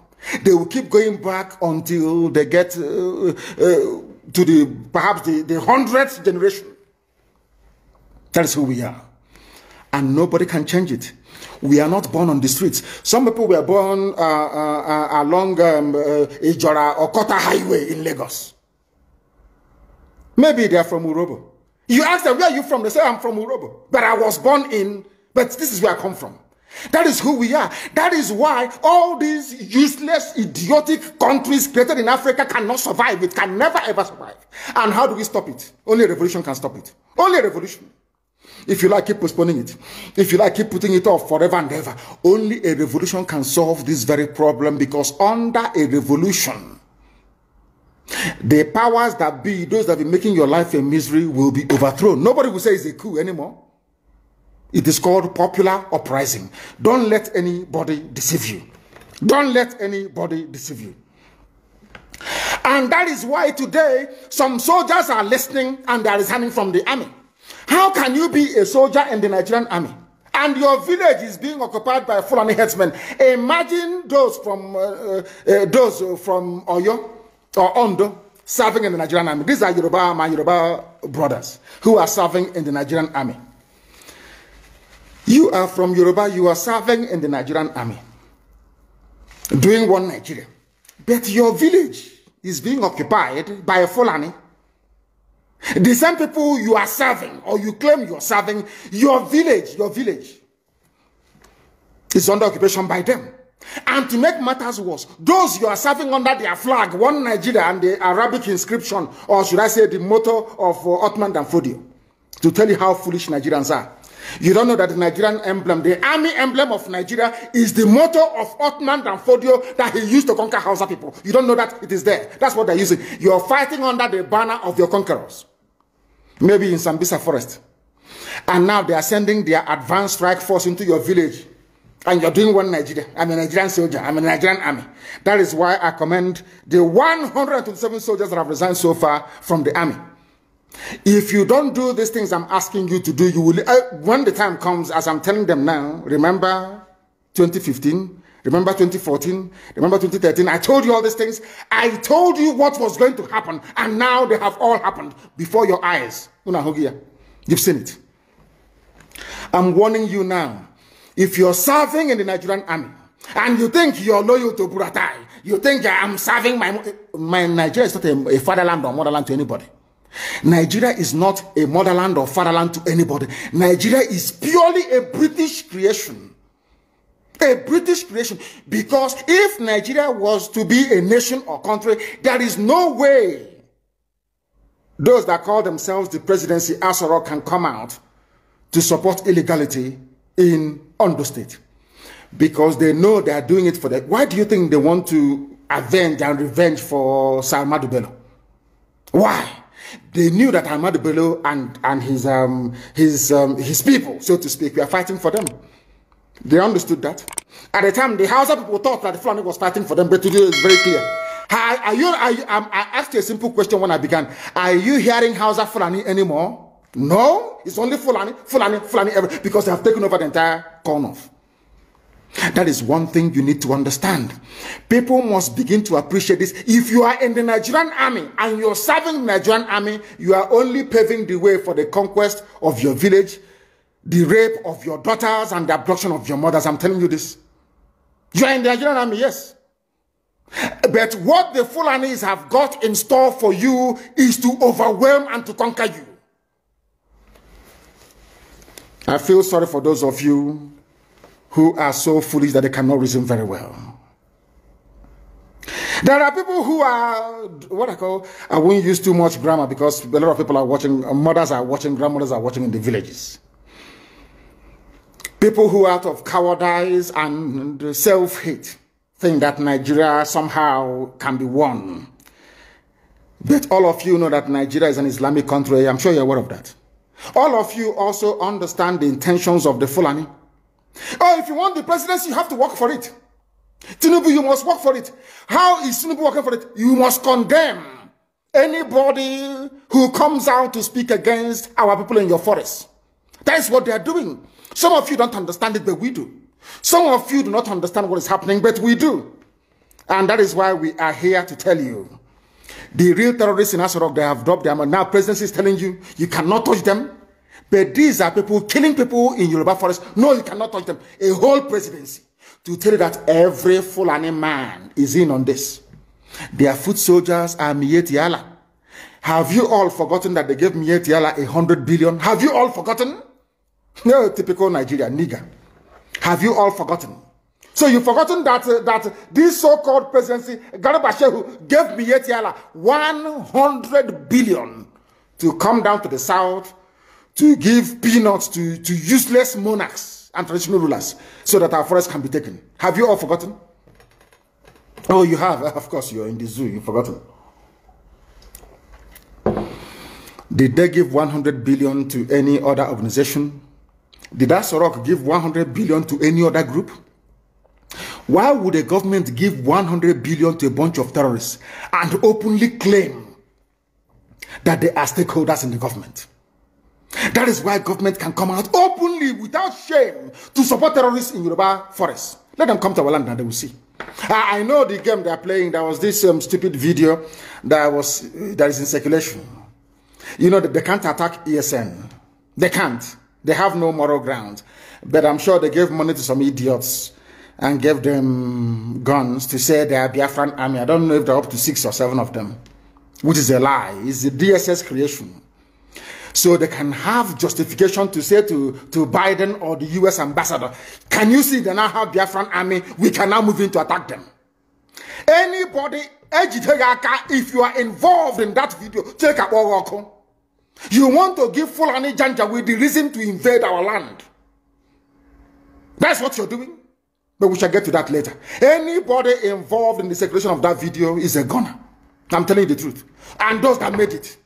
They will keep going back until they get uh, uh, to the perhaps the, the hundredth generation. That is who we are. And nobody can change it. We are not born on the streets. Some people were born uh, uh, uh along um, uh, Ijora or Kota Highway in Lagos. Maybe they are from Urobo. You ask them, where are you from? They say, I'm from Urobo. But I was born in, but this is where I come from. That is who we are. That is why all these useless, idiotic countries created in Africa cannot survive. It can never ever survive. And how do we stop it? Only a revolution can stop it. Only a revolution. If you like, keep postponing it. If you like, keep putting it off forever and ever. Only a revolution can solve this very problem because under a revolution, the powers that be, those that have been making your life a misery, will be overthrown. Nobody will say it's a coup anymore. It is called popular uprising. Don't let anybody deceive you. Don't let anybody deceive you. And that is why today some soldiers are listening and they are resigning from the army. How can you be a soldier in the Nigerian army? And your village is being occupied by Fulani headsmen. Imagine those from uh, uh, uh those from Oyo or Ondo serving in the Nigerian army. These are Yoruba, my Yoruba brothers who are serving in the Nigerian army. You are from Yoruba, you are serving in the Nigerian army, doing one Nigeria. But your village is being occupied by a Fulani. The same people you are serving, or you claim you are serving, your village, your village is under occupation by them. And to make matters worse, those you are serving under their flag, one Nigeria and the Arabic inscription, or should I say the motto of uh, Ottoman Danfodio, to tell you how foolish Nigerians are. You don't know that the Nigerian emblem, the army emblem of Nigeria, is the motto of Ottoman Danfodio that he used to conquer Hausa people. You don't know that it is there. That's what they're using. You're fighting under the banner of your conquerors. Maybe in Sambisa forest. And now they are sending their advanced strike force into your village. And you're doing one Nigeria. I'm a Nigerian soldier. I'm a Nigerian army. That is why I commend the 127 soldiers that have resigned so far from the army. If you don't do these things I'm asking you to do, you will, uh, when the time comes, as I'm telling them now, remember 2015, remember 2014, remember 2013, I told you all these things. I told you what was going to happen, and now they have all happened before your eyes. You've seen it. I'm warning you now. If you're serving in the Nigerian army, and you think you're loyal to Buratai, you think I'm serving my, my Nigeria is not a, a fatherland or motherland to anybody. Nigeria is not a motherland or fatherland to anybody. Nigeria is purely a British creation. A British creation. Because if Nigeria was to be a nation or country, there is no way those that call themselves the presidency Asoro can come out to support illegality in Ondo State. Because they know they are doing it for that. Why do you think they want to avenge and revenge for Salma Bello? Why? They knew that Ahmad Bello and, and his, um, his, um, his people, so to speak, were fighting for them. They understood that. At the time, the Hausa people thought that the Fulani was fighting for them, but today it's very clear. Are, are you, are you, um, I asked you a simple question when I began. Are you hearing Hausa Fulani anymore? No, it's only Fulani, Fulani, Fulani, because they have taken over the entire corn That is one thing you need to understand. People must begin to appreciate this. If you are in the Nigerian army and you're serving the Nigerian army, you are only paving the way for the conquest of your village, the rape of your daughters, and the abduction of your mothers. I'm telling you this. You are in the Nigerian army, yes. But what the Fulanis have got in store for you is to overwhelm and to conquer you. I feel sorry for those of you who are so foolish that they cannot reason very well. There are people who are what I call I won't use too much grammar because a lot of people are watching, mothers are watching, grandmothers are watching in the villages. People who out of cowardice and self-hate think that Nigeria somehow can be won. But all of you know that Nigeria is an Islamic country. I'm sure you're aware of that. All of you also understand the intentions of the Fulani Oh, if you want the presidency, you have to work for it. Tinubu, you must work for it. How is Tinubu working for it? You must condemn anybody who comes out to speak against our people in your forest. That is what they are doing. Some of you don't understand it, but we do. Some of you do not understand what is happening, but we do. And that is why we are here to tell you. The real terrorists in Asorok, they have dropped them, and now presidency is telling you, you cannot touch them. But these are people killing people in Yoruba forest. No, you cannot touch them. A whole presidency to tell you that every Fulani man is in on this. Their foot soldiers are Mietiala. Have you all forgotten that they gave Mietiala a hundred billion? Have you all forgotten? No, typical Nigeria, nigger. Have you all forgotten? So you've forgotten that uh, that this so-called presidency, Garba gave Mietiala 100 billion to come down to the south to give peanuts to, to useless monarchs and traditional rulers so that our forests can be taken. Have you all forgotten? Oh, you have. Of course, you're in the zoo. You've forgotten. Did they give 100 billion to any other organization? Did Asorok give 100 billion to any other group? Why would a government give 100 billion to a bunch of terrorists and openly claim that they are stakeholders in the government? That is why government can come out openly without shame to support terrorists in Yoruba forests. Let them come to our land and they will see. I, I know the game they are playing. There was this um, stupid video that was uh, that is in circulation. You know they can't attack ESN. They can't. They have no moral ground. But I'm sure they gave money to some idiots and gave them guns to say they are Biafran army. I don't know if they're up to six or seven of them, which is a lie. It's the DSS creation so they can have justification to say to, to Biden or the US ambassador, can you see they now have Biafran army? We can now move in to attack them. Anybody, if you are involved in that video, take a walk. You want to give Fulani Janja with the reason to invade our land. That's what you're doing. But we shall get to that later. Anybody involved in the circulation of that video is a gunner. I'm telling you the truth. And those that made it.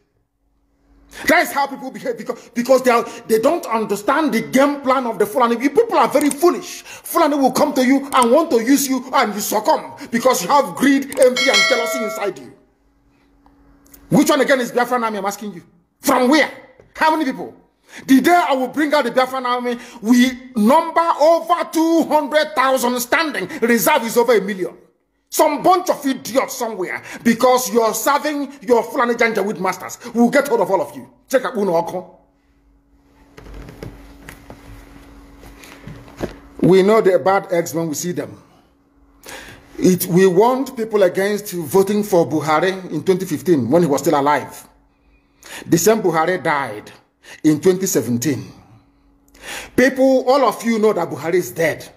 That is how people behave because, because they, are, they don't understand the game plan of the Fulani. People are very foolish. Fulani will come to you and want to use you and you succumb because you have greed, envy and jealousy inside you. Which one again is Biafran army I'm asking you? From where? How many people? The day I will bring out the Biafran army, we number over 200,000 standing. Reserve is over a million some bunch of idiots somewhere because you're serving your Fulani Janjaweed masters. We'll get hold of all of you. Check out Uno We know the bad eggs when we see them. It, we warned people against voting for Buhari in 2015 when he was still alive. The same Buhari died in 2017. People, all of you know that Buhari is dead.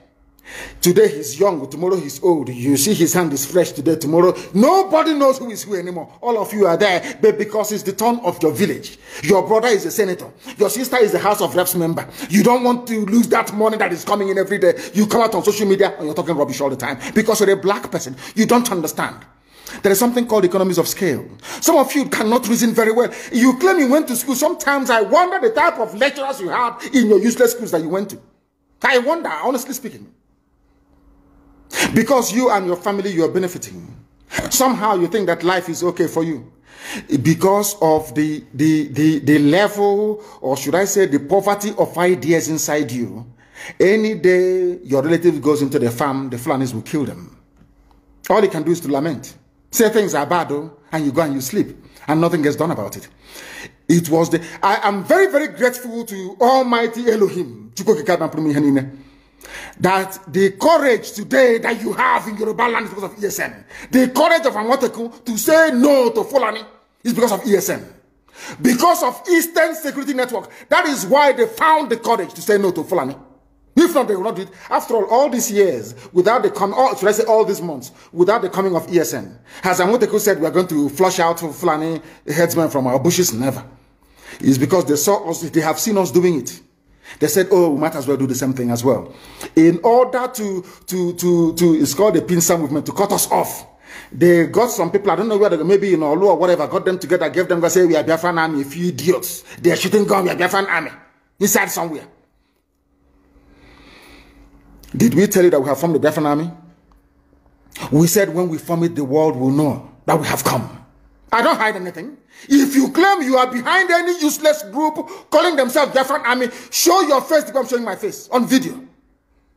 Today he's young, tomorrow he's old. You see his hand is fresh today, tomorrow. Nobody knows who is who anymore. All of you are there but because it's the turn of your village. Your brother is a senator. Your sister is a House of Reps member. You don't want to lose that money that is coming in every day. You come out on social media and you're talking rubbish all the time because you're a black person. You don't understand. There is something called economies of scale. Some of you cannot reason very well. You claim you went to school. Sometimes I wonder the type of lecturers you had in your useless schools that you went to. I wonder, honestly speaking. Because you and your family, you are benefiting. Somehow you think that life is okay for you because of the, the, the, the level, or should I say, the poverty of ideas inside you. Any day your relative goes into the farm, the Fulanis will kill them. All you can do is to lament. Say things are bad, though, and you go and you sleep, and nothing gets done about it. It was the. I am very, very grateful to Almighty Elohim that the courage today that you have in Yoruba land is because of ESM, The courage of Amoteku to say no to Fulani is because of ESM, Because of Eastern Security Network. That is why they found the courage to say no to Fulani. If not, they will not do it. After all, all these years, without the coming, should I say all these months, without the coming of ESN, as Anwoteku said, we are going to flush out Fulani headsmen from our bushes, never. It's because they saw us, they have seen us doing it. They said, oh, we might as well do the same thing as well. In order to, to, to, to it's called the pincer movement, to cut us off. They got some people, I don't know whether maybe in Olu or whatever, got them together, gave them, say, we are Biafran army, a few idiots. They are shooting gun, we are Biafran army. Inside somewhere. Did we tell you that we have formed the Biafran army? We said when we form it, the world will know that we have come. I don't hide anything. If you claim you are behind any useless group calling themselves Biafran Army, show your face because I'm showing my face on video.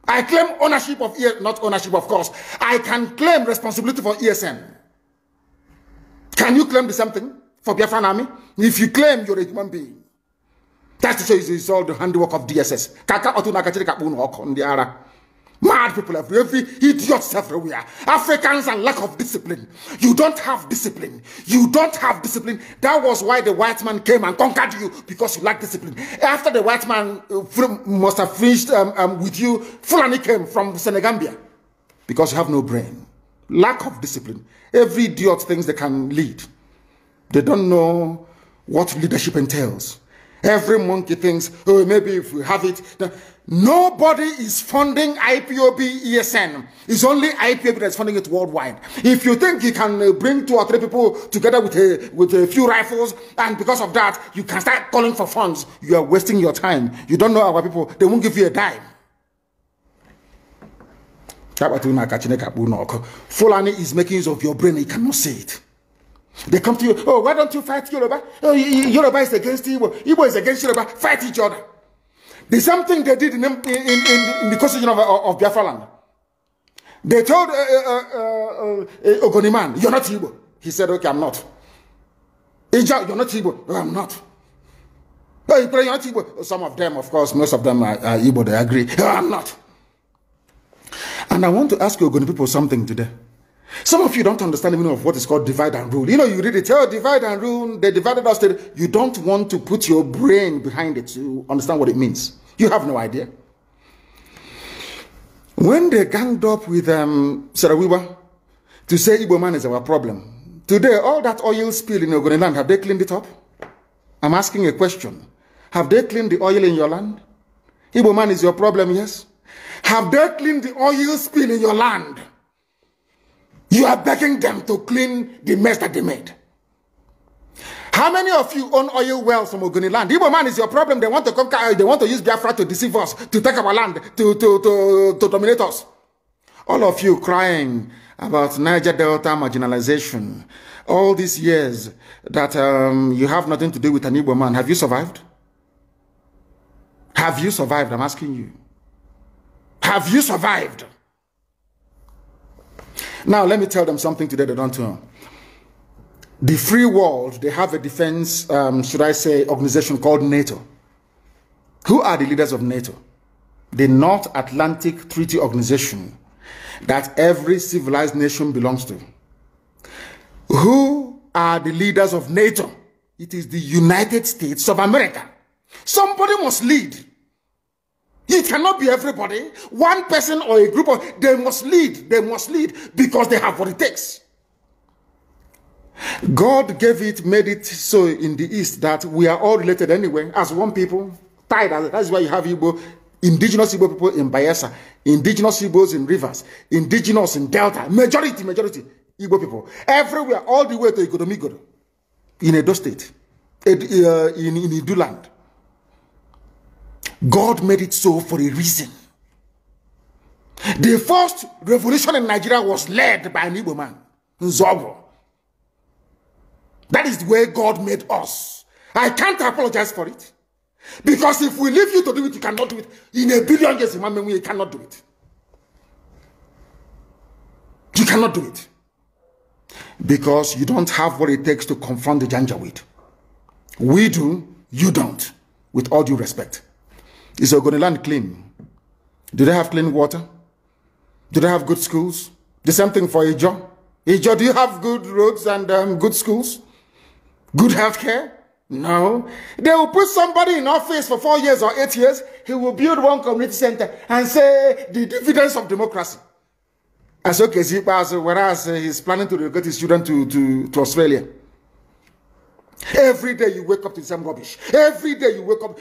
I claim ownership of, ESN, not ownership, of course. I can claim responsibility for ESN. Can you claim the same thing for Biafran Army? If you claim you're a human being, that's to show you it's all the handiwork of DSS. Kaka otu nakachiri kapunu hoko ndi ara. Mad people everywhere, idiots everywhere, Africans and lack of discipline. You don't have discipline. You don't have discipline. That was why the white man came and conquered you because you lack discipline. After the white man uh, must have finished um, um, with you, Fulani came from Senegambia because you have no brain. Lack of discipline. Every idiot thinks they can lead. They don't know what leadership entails. Every monkey thinks, oh, maybe if we have it. Then... Nobody is funding IPOB ESN. It's only IPOB that's funding it worldwide. If you think you can uh, bring two or three people together with a, with a few rifles, and because of that, you can start calling for funds, you are wasting your time. You don't know our people. They won't give you a dime. Fulani is making use of your brain. he cannot see it. They come to you, oh, why don't you fight Yoruba? Oh, Yoruba is against Igbo. Igbo is against Yoruba. Fight each other. The same thing they did in, in, in, in the constitution of, of, Biafra land. They told uh, uh, uh, uh, uh Ogoniman, you're not Igbo. He said, okay, I'm not. Ija, you're not Igbo. No, I'm not. No, you're not Igbo. Oh, some of them, of course, most of them are, are Igbo. They agree. No, I'm not. And I want to ask you Ogoni people something today. Some of you don't understand the meaning of what is called divide and rule. You know, you read it, oh, divide and rule, they divided us. You don't want to put your brain behind it to understand what it means. You have no idea. When they ganged up with um, Sarawiwa to say Igbo man is our problem, today all that oil spill in Ogoni land, have they cleaned it up? I'm asking a question. Have they cleaned the oil in your land? Igbo man is your problem, yes? Have they cleaned the oil spill in your land? You are begging them to clean the mess that they made. How many of you own oil wells from Ogoni land? Igbo man is your problem. They want to conquer oil. They want to use Biafra to deceive us, to take our land, to, to, to, to dominate us. All of you crying about Niger Delta marginalization. All these years that um, you have nothing to do with an Igbo man. Have you survived? Have you survived? I'm asking you. Have you survived? Now, let me tell them something today they don't know. The free world, they have a defense, um, should I say, organization called NATO. Who are the leaders of NATO? The North Atlantic Treaty Organization that every civilized nation belongs to. Who are the leaders of NATO? It is the United States of America. Somebody must lead. It cannot be everybody, one person or a group of they must lead, they must lead because they have what it takes. God gave it, made it so in the East that we are all related anyway, as one people, tied that's why you have Igbo, indigenous Igbo people in Bayelsa, indigenous Igbos in rivers, indigenous in Delta, majority, majority Igbo people, everywhere, all the way to Igodomigodo, in Edo State, in, uh, in, in Idu land. God made it so for a reason. The first revolution in Nigeria was led by an Igbo man, Nzobo. That is the way God made us. I can't apologize for it. Because if we leave you to do it, you cannot do it. In a billion years, you cannot do it. You cannot do it. Because you don't have what it takes to confront the Janjaweed. We do, you don't. With all due respect. Is Ogoniland clean? Do they have clean water? Do they have good schools? The same thing for Ijo. Ijo, do you have good roads and um, good schools? Good health care? No. They will put somebody in office for four years or eight years. He will build one community center and say the dividends of democracy. As so Kezipa, whereas uh, he's planning to relocate his children to, to, to Australia. Every day you wake up to the same rubbish. Every day you wake up.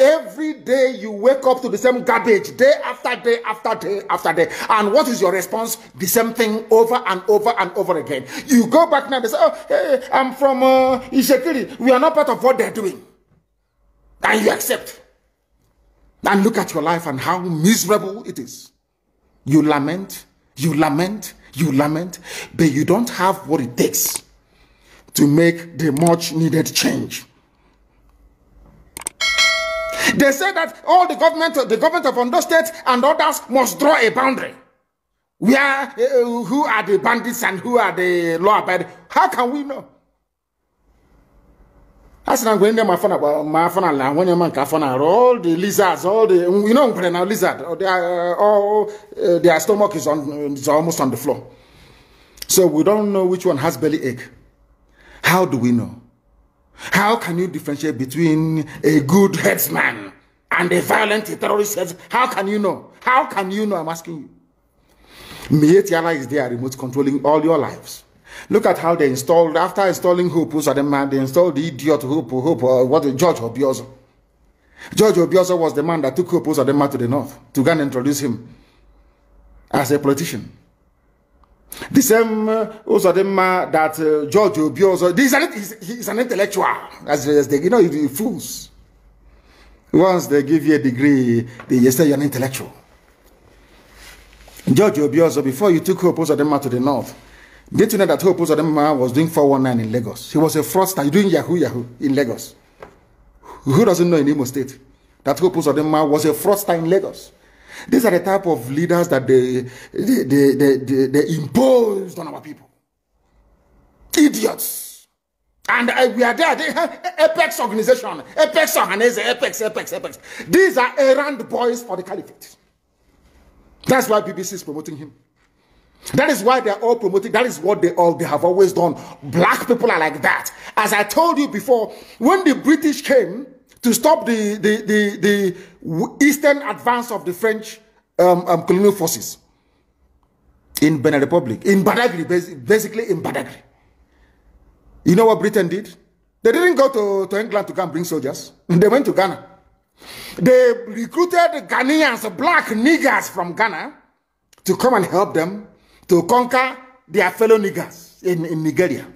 every day you wake up to the same garbage. Day after day after day after day. And what is your response? The same thing over and over and over again. You go back now and say, "Oh, hey, I'm from uh, We are not part of what they're doing." And you accept. And look at your life and how miserable it is. You lament. You lament. You lament. But you don't have what it takes to make the much needed change. They say that all the government, the government of Ondo State and others must draw a boundary. Where, uh, who are the bandits and who are the law abiding? How can we know? As I'm going there, my phone, my phone, la, when your man phone, all the lizards, all the, you know, when lizard, they are, uh, all, uh, their stomach is on, is almost on the floor. So we don't know which one has belly ache. How do we know? How can you differentiate between a good headsman and a violent terrorist? Heads? How can you know? How can you know? I'm asking you. Mietiala is there remote controlling all your lives. Look at how they installed, after installing Hope, who's the man, they installed the idiot Hope, Hope, or uh, what, George Obiozo. George Obiozo was the man that took Hope, the man to the north to go and introduce him as a politician. The same also the man that uh, George Obi also. This is he's, he's an intellectual. As, as they, you know, you fools. Once they give you a degree, they say you're an intellectual. George Obi also, before you took Hope Ozodema to the north, did you know that Hope Ozodema was doing 419 in Lagos? He was a fraudster doing Yahoo Yahoo in Lagos. Who doesn't know in Imo State that Hope Ozodema was a fraudster in Lagos? These are the type of leaders that they, they, they, they, they, they imposed on our people. Idiots. And uh, we are there. They have Apex organization. Apex organization. Apex, Apex, Apex. These are errand boys for the caliphate. That's why BBC is promoting him. That is why they're all promoting. That is what they all they have always done. Black people are like that. As I told you before, when the British came, to stop the, the, the, the eastern advance of the French um, um, colonial forces in Benin Republic, in Badagry, basically in Badagry. You know what Britain did? They didn't go to, to England to come bring soldiers. They went to Ghana. They recruited Ghanaians, black niggers from Ghana to come and help them to conquer their fellow niggers in, in Nigeria.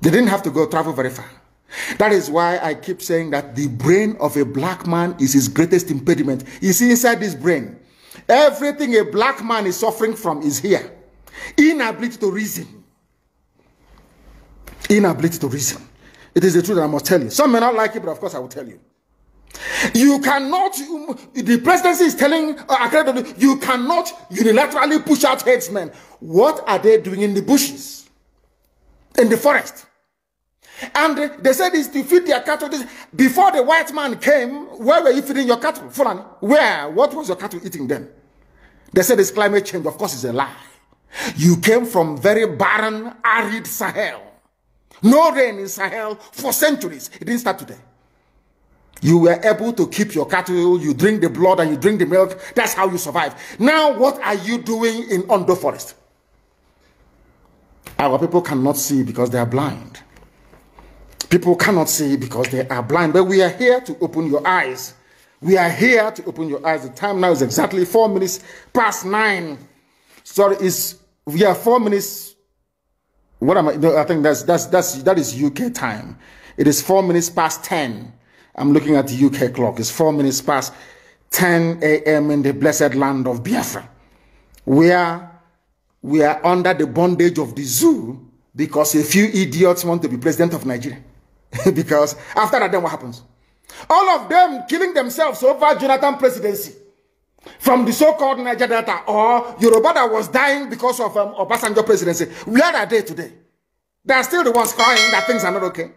They didn't have to go travel very far. That is why I keep saying that the brain of a black man is his greatest impediment. see, inside this brain. Everything a black man is suffering from is here. Inability to reason. Inability to reason. It is the truth I must tell you. Some may not like it, but of course I will tell you. You cannot, the presidency is telling uh, you cannot unilaterally push out headsmen. What are they doing in the bushes? In the forest? And they said it's to feed their cattle. Before the white man came, where were you feeding your cattle? Fulani. Where? What was your cattle eating then? They said it's climate change. Of course, it's a lie. You came from very barren, arid Sahel. No rain in Sahel for centuries. It didn't start today. You were able to keep your cattle, you drink the blood and you drink the milk. That's how you survive. Now, what are you doing in Ondo Forest? Our people cannot see because they are blind. People cannot see because they are blind, but we are here to open your eyes. We are here to open your eyes. The time now is exactly four minutes past nine. Sorry, is we are four minutes. What am I? No, I think that's that's that's that is UK time. It is four minutes past ten. I'm looking at the UK clock. It's four minutes past 10 a.m. in the blessed land of Biafra, where we are under the bondage of the zoo because a few idiots want to be president of Nigeria. <laughs> because after that, then what happens? All of them killing themselves over Jonathan presidency from the so-called Niger Delta or Yoruba that was dying because of um, Obasanjo presidency. Where are they today? They are still the ones crying that things are not okay.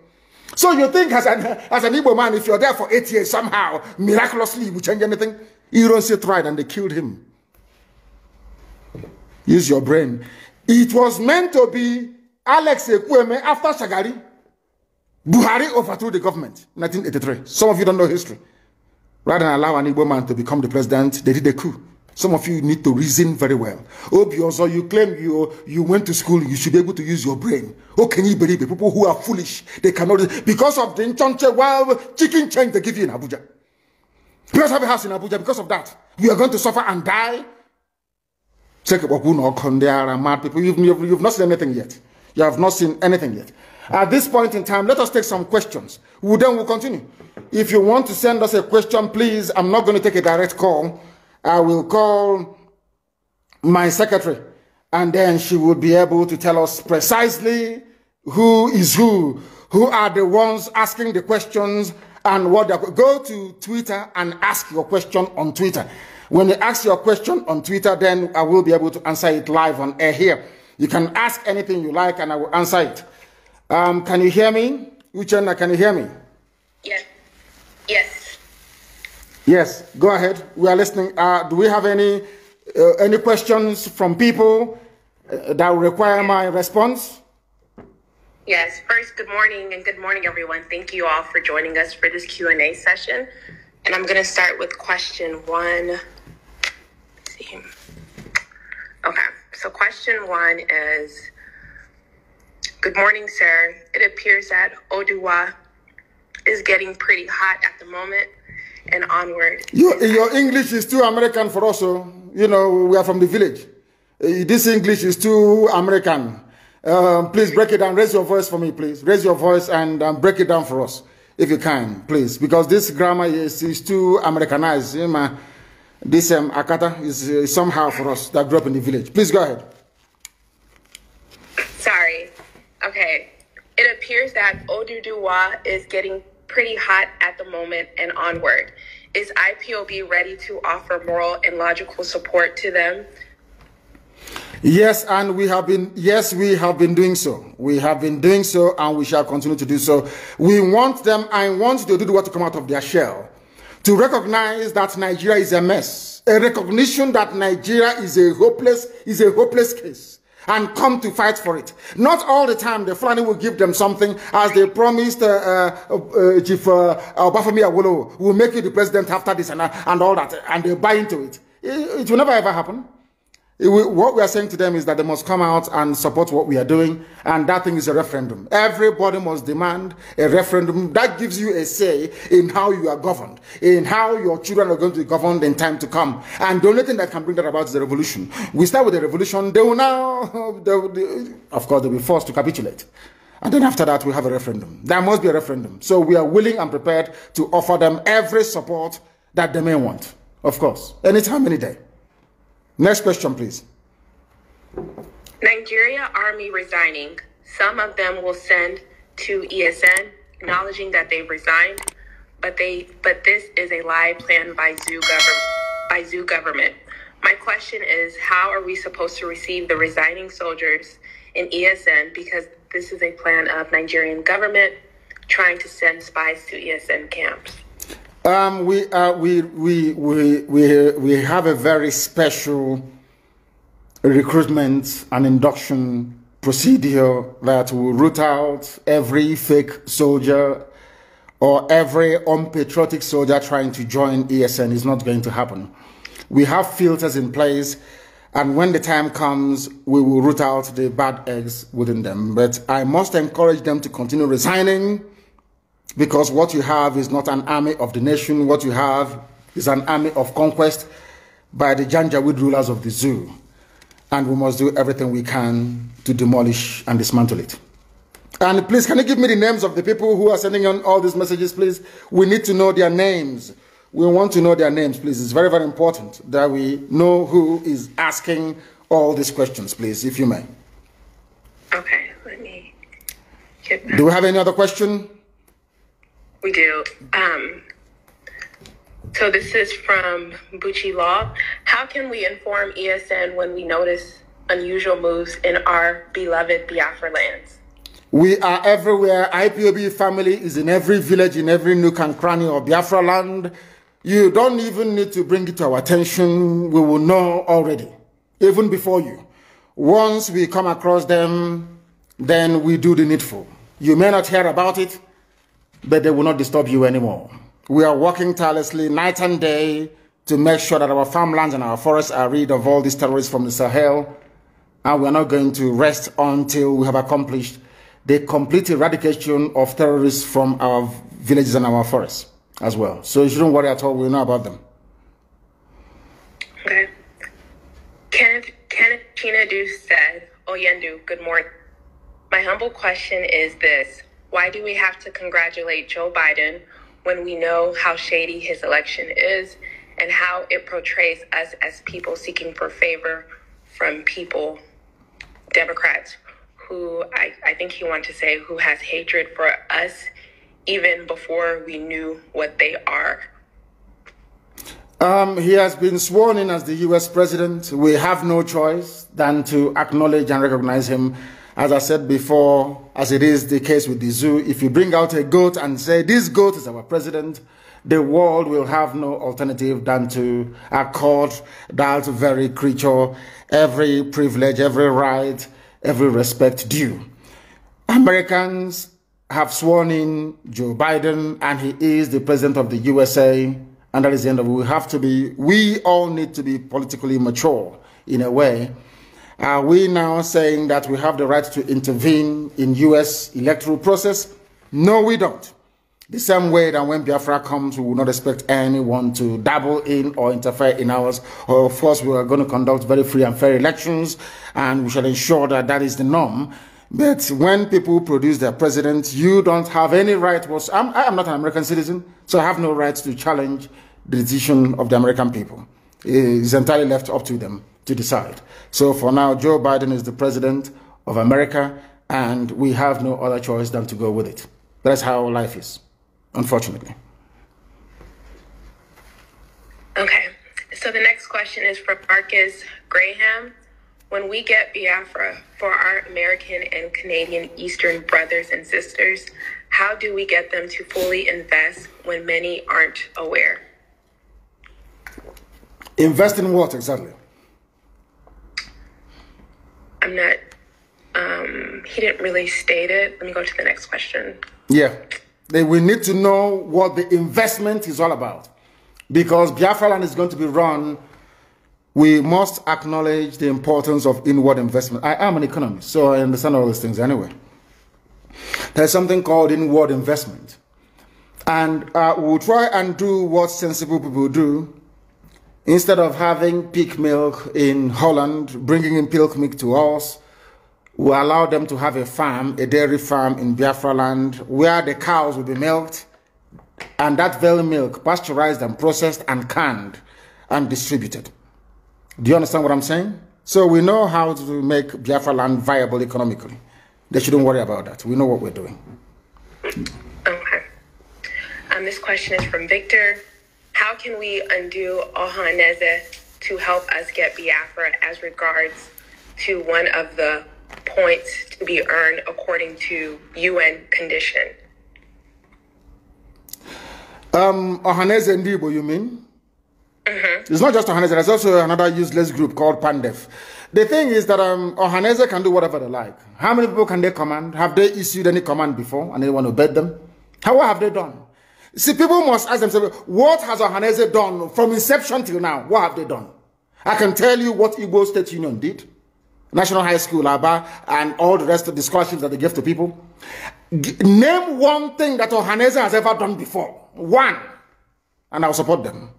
So you think as an, <laughs> as an Igbo man, if you're there for eight years, somehow, miraculously, you change anything? You don't see tried and they killed him. Use your brain. It was meant to be Alex Ekweme after Shagari. Buhari overthrew the government 1983. Some of you don't know history. Rather than allow an Igbo man to become the president, they did a coup. Some of you need to reason very well. Obiozo, you claim you you went to school, you should be able to use your brain. How can you believe it? People who are foolish, they cannot. Because of the Nchonche, well, chicken change they give you in Abuja. Because of a house in Abuja, because of that, you are going to suffer and die. Check There are mad people. You've, you've, you've not seen anything yet. You have not seen anything yet. At this point in time, let us take some questions. We'll, then we'll continue. If you want to send us a question, please, I'm not going to take a direct call. I will call my secretary, and then she will be able to tell us precisely who is who, who are the ones asking the questions, and what they're... Go to Twitter and ask your question on Twitter. When you ask your question on Twitter, then I will be able to answer it live on air here. You can ask anything you like, and I will answer it. Um, can you hear me? Uchenna, can you hear me? Yes. Yes. Yes. Go ahead. We are listening. Uh, do we have any uh, any questions from people uh, that require my response? Yes. First, good morning and good morning, everyone. Thank you all for joining us for this Q and A session. And I'm going to start with question one. Let's see. Okay. So question one is Good morning, sir. It appears that Oduwa is getting pretty hot at the moment and onward. You, your English is too American for us. You know, we are from the village. Eh, this English is too American. Um, please break it down. Raise your voice for me, please. Raise your voice and um, break it down for us, if you can, please. Because this grammar is, is too Americanized. You eh, know, this um, Akata is uh, somehow for us that grew up in the village. Please go ahead. Okay. It appears that Oduduwa is getting pretty hot at the moment and onward. Is IPOB ready to offer moral and logical support to them? Yes, and we have been yes, we have been doing so. We have been doing so and we shall continue to do so. We want them I want to do what to come out of their shell. To recognize that Nigeria is a mess. A recognition that Nigeria is a hopeless is a hopeless case and come to fight for it. Not all the time the Fulani will give them something as they promised uh, uh, uh, Chief uh, Obafemi Awolowo will make you the president after this and, uh, and all that and they buy into it. it. It will never ever happen what we are saying to them is that they must come out and support what we are doing, and that thing is a referendum. Everybody must demand a referendum. That gives you a say in how you are governed, in how your children are going to be governed in time to come. And the only thing that can bring that about is the revolution. We start with the revolution, they will now, <laughs> they will, they, of course, they'll be forced to capitulate. And then after that, we have a referendum. There must be a referendum. So we are willing and prepared to offer them every support that they may want, of course, anytime, any day. Next question, please. Nigeria Army resigning. Some of them will send to ESN, acknowledging that they've resigned, but they but this is a lie planned by zoo government by zoo government. My question is how are we supposed to receive the resigning soldiers in ESN because this is a plan of Nigerian government trying to send spies to ESN camps. Um, we, uh, we, we, we, we, we have a very special recruitment and induction procedure that will root out every fake soldier or every unpatriotic soldier trying to join ESN is not going to happen. We have filters in place, and when the time comes, we will root out the bad eggs within them. But I must encourage them to continue resigning because what you have is not an army of the nation, what you have is an army of conquest by the Janjaweed rulers of the zoo. And we must do everything we can to demolish and dismantle it. And please, can you give me the names of the people who are sending on all these messages, please? We need to know their names. We want to know their names, please. It's very, very important that we know who is asking all these questions, please, if you may. Okay, let me get Do we have any other question? We do. Um, so this is from Bucci Law. How can we inform ESN when we notice unusual moves in our beloved Biafra lands? We are everywhere. IPOB family is in every village, in every nook and cranny of Biafra land. You don't even need to bring it to our attention. We will know already, even before you. Once we come across them, then we do the needful. You may not hear about it, but they will not disturb you anymore. We are working tirelessly night and day to make sure that our farmlands and our forests are rid of all these terrorists from the Sahel, and we are not going to rest until we have accomplished the complete eradication of terrorists from our villages and our forests as well. So you shouldn't worry at all. We know about them. Okay. Kenneth, Kenneth Do said, Oyendu, oh, good morning. My humble question is this. Why do we have to congratulate Joe Biden when we know how shady his election is and how it portrays us as people seeking for favor from people, Democrats, who I, I think he wanted to say who has hatred for us even before we knew what they are? Um, he has been sworn in as the US president. We have no choice than to acknowledge and recognize him as I said before, as it is the case with the zoo, if you bring out a goat and say, this goat is our president, the world will have no alternative than to accord that very creature every privilege, every right, every respect due. Americans have sworn in Joe Biden and he is the president of the USA and that is the end of it. We have to be, we all need to be politically mature in a way are we now saying that we have the right to intervene in U.S. electoral process? No, we don't. The same way that when Biafra comes, we will not expect anyone to dabble in or interfere in ours. Of course, we are going to conduct very free and fair elections, and we shall ensure that that is the norm. But when people produce their president, you don't have any right. I'm, I am not an American citizen, so I have no right to challenge the decision of the American people. It's entirely left up to them to decide. So for now, Joe Biden is the president of America, and we have no other choice than to go with it. That's how life is, unfortunately. Okay. So the next question is from Marcus Graham. When we get Biafra for our American and Canadian Eastern brothers and sisters, how do we get them to fully invest when many aren't aware? Invest in what exactly? I'm not. Um, he didn't really state it. Let me go to the next question. Yeah, we need to know what the investment is all about, because Biafra land is going to be run. We must acknowledge the importance of inward investment. I am an economist, so I understand all these things anyway. There's something called inward investment. And uh, we'll try and do what sensible people do Instead of having pig milk in Holland, bringing in peak milk to us, we allow them to have a farm, a dairy farm in Biafra land, where the cows will be milked, and that very milk pasteurized and processed and canned and distributed. Do you understand what I'm saying? So we know how to make Biafra land viable economically. They shouldn't worry about that. We know what we're doing. Okay. And um, this question is from Victor. How can we undo Ohaneze to help us get Biafra as regards to one of the points to be earned according to UN condition? Um, Ohaneze Ndibo, you mean? Mm-hmm. It's not just Ohaneze, there's also another useless group called Pandef. The thing is that um, Ohaneze can do whatever they like. How many people can they command? Have they issued any command before and anyone obeyed them? How, what have they done? See, people must ask themselves, what has Ohanese done from inception till now? What have they done? I can tell you what Igbo State Union did. National High School, ABBA, and all the rest of the scholarships that they give to people. G name one thing that Ohanese has ever done before. One. And I'll support them.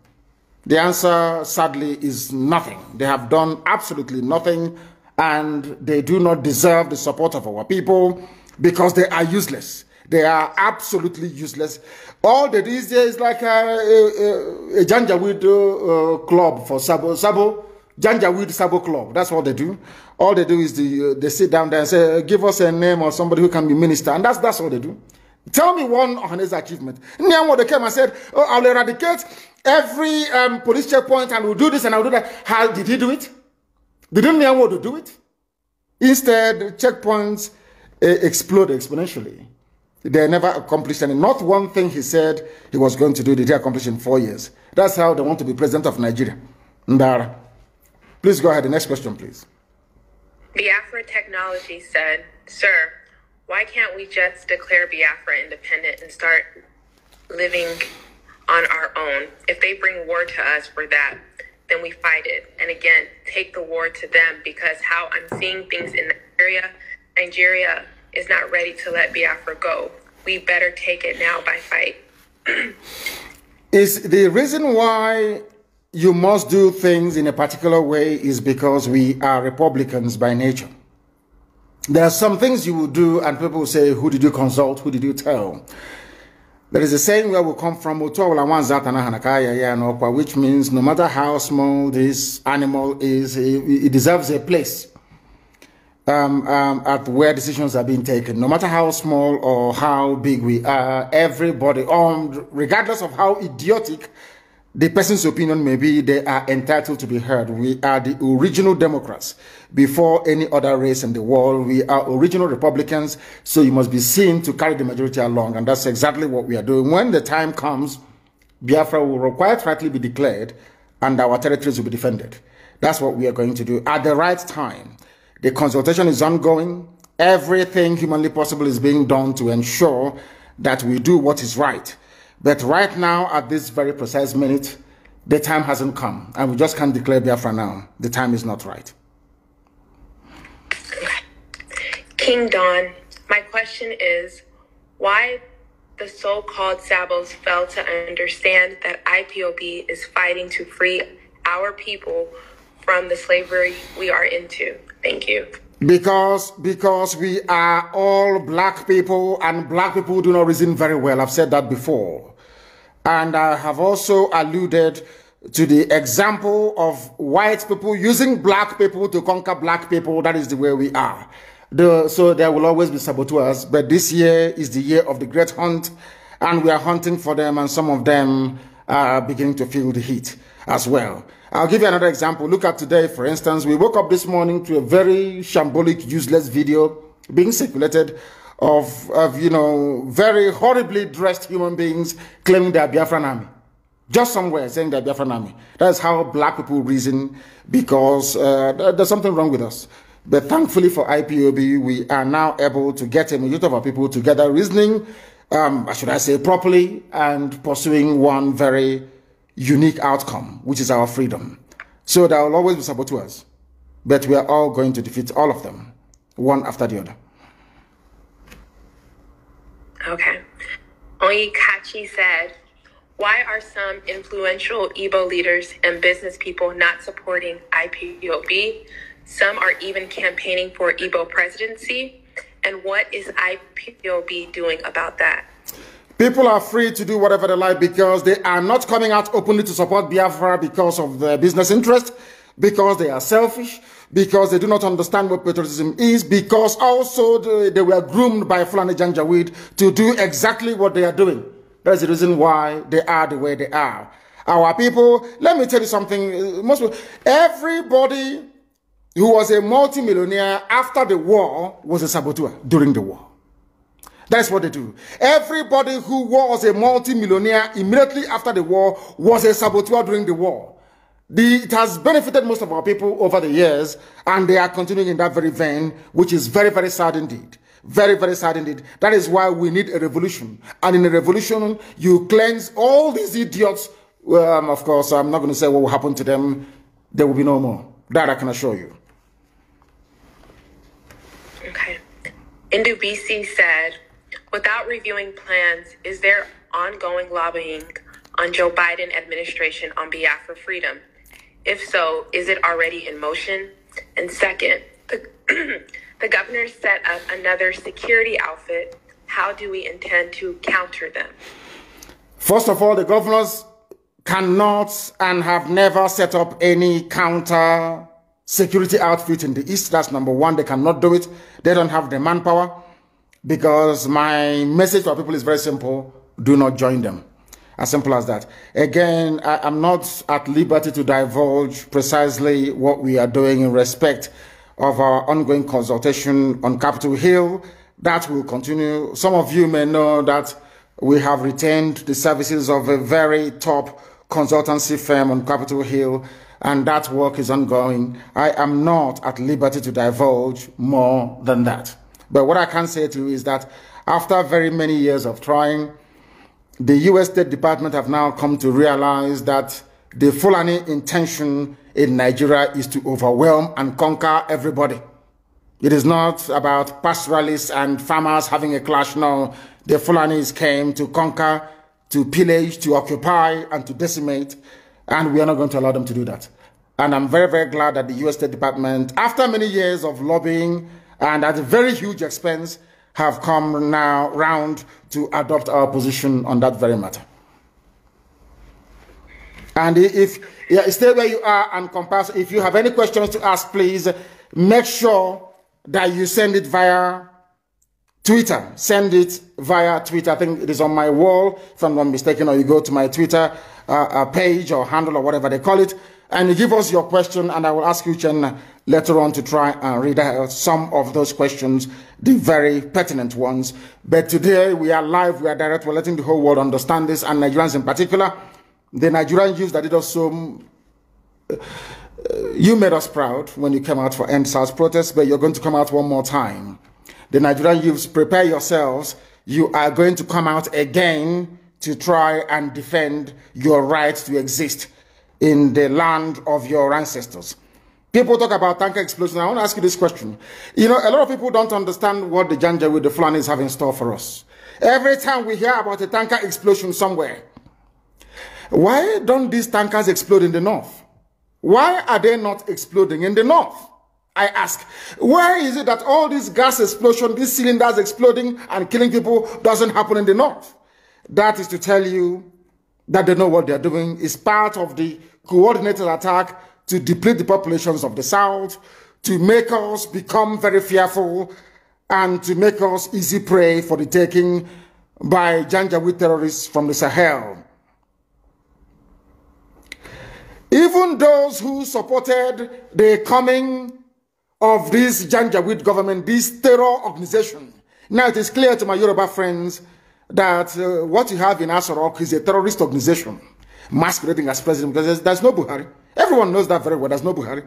The answer, sadly, is nothing. They have done absolutely nothing, and they do not deserve the support of our people because they are useless. They are absolutely useless. All that is there is like a, a, a, a Janjaweed uh, uh, club for Sabo. Sabo Janjaweed Sabo Club. That's what they do. All they do is the, uh, they sit down there and say, give us a name or somebody who can be minister. And that's, that's all they do. Tell me one his achievement. Niamwo, they came and said, oh, I'll eradicate every um, police checkpoint and we'll do this and I'll do that. How did he do it? Didn't Niamwo do it? Instead, checkpoints uh, explode exponentially. They never accomplished any. Not one thing he said he was going to do did he accomplish in four years. That's how they want to be president of Nigeria. Ndara. Please go ahead. The next question, please. Biafra Technology said, Sir, why can't we just declare Biafra independent and start living on our own? If they bring war to us for that, then we fight it. And again, take the war to them because how I'm seeing things in Nigeria, Nigeria is not ready to let Biafra go. We better take it now by fight. <clears throat> is the reason why you must do things in a particular way is because we are Republicans by nature. There are some things you will do, and people say, Who did you consult? Who did you tell? There is a saying where we come from, which means no matter how small this animal is, it deserves a place um, um, at where decisions are being taken. No matter how small or how big we are, everybody, um, regardless of how idiotic the person's opinion may be, they are entitled to be heard. We are the original Democrats before any other race in the world. We are original Republicans, so you must be seen to carry the majority along. And that's exactly what we are doing. When the time comes, Biafra will quite rightly be declared and our territories will be defended. That's what we are going to do at the right time. The consultation is ongoing. Everything humanly possible is being done to ensure that we do what is right. But right now, at this very precise minute, the time hasn't come, and we just can't declare Biafra now. The time is not right. King Don, my question is why the so called Sabos fail to understand that IPOB is fighting to free our people from the slavery we are into. Thank you. Because because we are all black people and black people do not reason very well. I've said that before. And I have also alluded to the example of white people using black people to conquer black people. That is the way we are. The, so there will always be saboteurs, but this year is the year of the great hunt, and we are hunting for them, and some of them are beginning to feel the heat as well. I'll give you another example. Look at today, for instance. We woke up this morning to a very shambolic, useless video being circulated of, of you know, very horribly dressed human beings claiming they are Biafran army. Just somewhere saying they are Biafran army. That's how black people reason because uh, there's something wrong with us. But thankfully for IPOB, we are now able to get a majority of our people together reasoning, um, should I say, properly and pursuing one very unique outcome, which is our freedom. So there will always be saboteurs, but we are all going to defeat all of them, one after the other. Okay. Kachi said, why are some influential Igbo leaders and business people not supporting IPOB? Some are even campaigning for Igbo presidency. And what is IPOB doing about that? People are free to do whatever they like because they are not coming out openly to support Biafra because of their business interest, because they are selfish, because they do not understand what patriotism is, because also they, they were groomed by Fulani Janjaweed to do exactly what they are doing. That's the reason why they are the way they are. Our people, let me tell you something, uh, most people, everybody who was a multimillionaire after the war was a saboteur during the war. That's what they do. Everybody who was a multi-millionaire immediately after the war was a saboteur during the war. The, it has benefited most of our people over the years, and they are continuing in that very vein, which is very, very sad indeed. Very, very sad indeed. That is why we need a revolution. And in a revolution, you cleanse all these idiots. Um, of course, I'm not going to say what will happen to them. There will be no more. That I can assure you. Okay. NDBC said, Without reviewing plans, is there ongoing lobbying on Joe Biden administration on behalf of freedom? If so, is it already in motion? And second, the, <clears throat> the governor set up another security outfit. How do we intend to counter them? First of all, the governors cannot and have never set up any counter security outfit in the East. That's number one. They cannot do it. They don't have the manpower because my message our people is very simple. Do not join them. As simple as that. Again, I, am not at liberty to divulge precisely what we are doing in respect of our ongoing consultation on Capitol Hill. That will continue. Some of you may know that we have retained the services of a very top consultancy firm on Capitol Hill, and that work is ongoing. I am not at liberty to divulge more than that. But what I can say to you is that after very many years of trying, the U.S. State Department have now come to realize that the Fulani intention in Nigeria is to overwhelm and conquer everybody. It is not about pastoralists and farmers having a clash. No, the Fulanis came to conquer, to pillage, to occupy, and to decimate, and we are not going to allow them to do that. And I'm very, very glad that the U.S. State Department, after many years of lobbying, and at a very huge expense have come now round to adopt our position on that very matter. And if yeah, stay where you are and compass, if you have any questions to ask, please make sure that you send it via Twitter. Send it via Twitter. I think it is on my wall, if I'm not mistaken, or you go to my Twitter uh, uh page or handle or whatever they call it, and you give us your question, and I will ask you, Chen later on to try and read out some of those questions, the very pertinent ones. But today we are live, we are direct, we're letting the whole world understand this, and Nigerians in particular. The Nigerian youth that did us so. Uh, uh, you made us proud when you came out for End SARS protests, but you're going to come out one more time. The Nigerian youths, prepare yourselves. You are going to come out again to try and defend your right to exist in the land of your ancestors. People talk about tanker explosion. I want to ask you this question. You know, a lot of people don't understand what the Janja with the Fulani have in store for us. Every time we hear about a tanker explosion somewhere, why don't these tankers explode in the north? Why are they not exploding in the north? I ask, where is it that all these gas explosion, these cylinders exploding and killing people doesn't happen in the north? That is to tell you that they know what they're doing It's part of the coordinated attack to deplete the populations of the South, to make us become very fearful, and to make us easy prey for the taking by Janjaweed terrorists from the Sahel. Even those who supported the coming of this Janjaweed government, this terror organization. Now it is clear to my Yoruba friends that uh, what you have in Asorok is a terrorist organization masquerading as president because there's, there's no Buhari. Everyone knows that very well. There's no Buhari.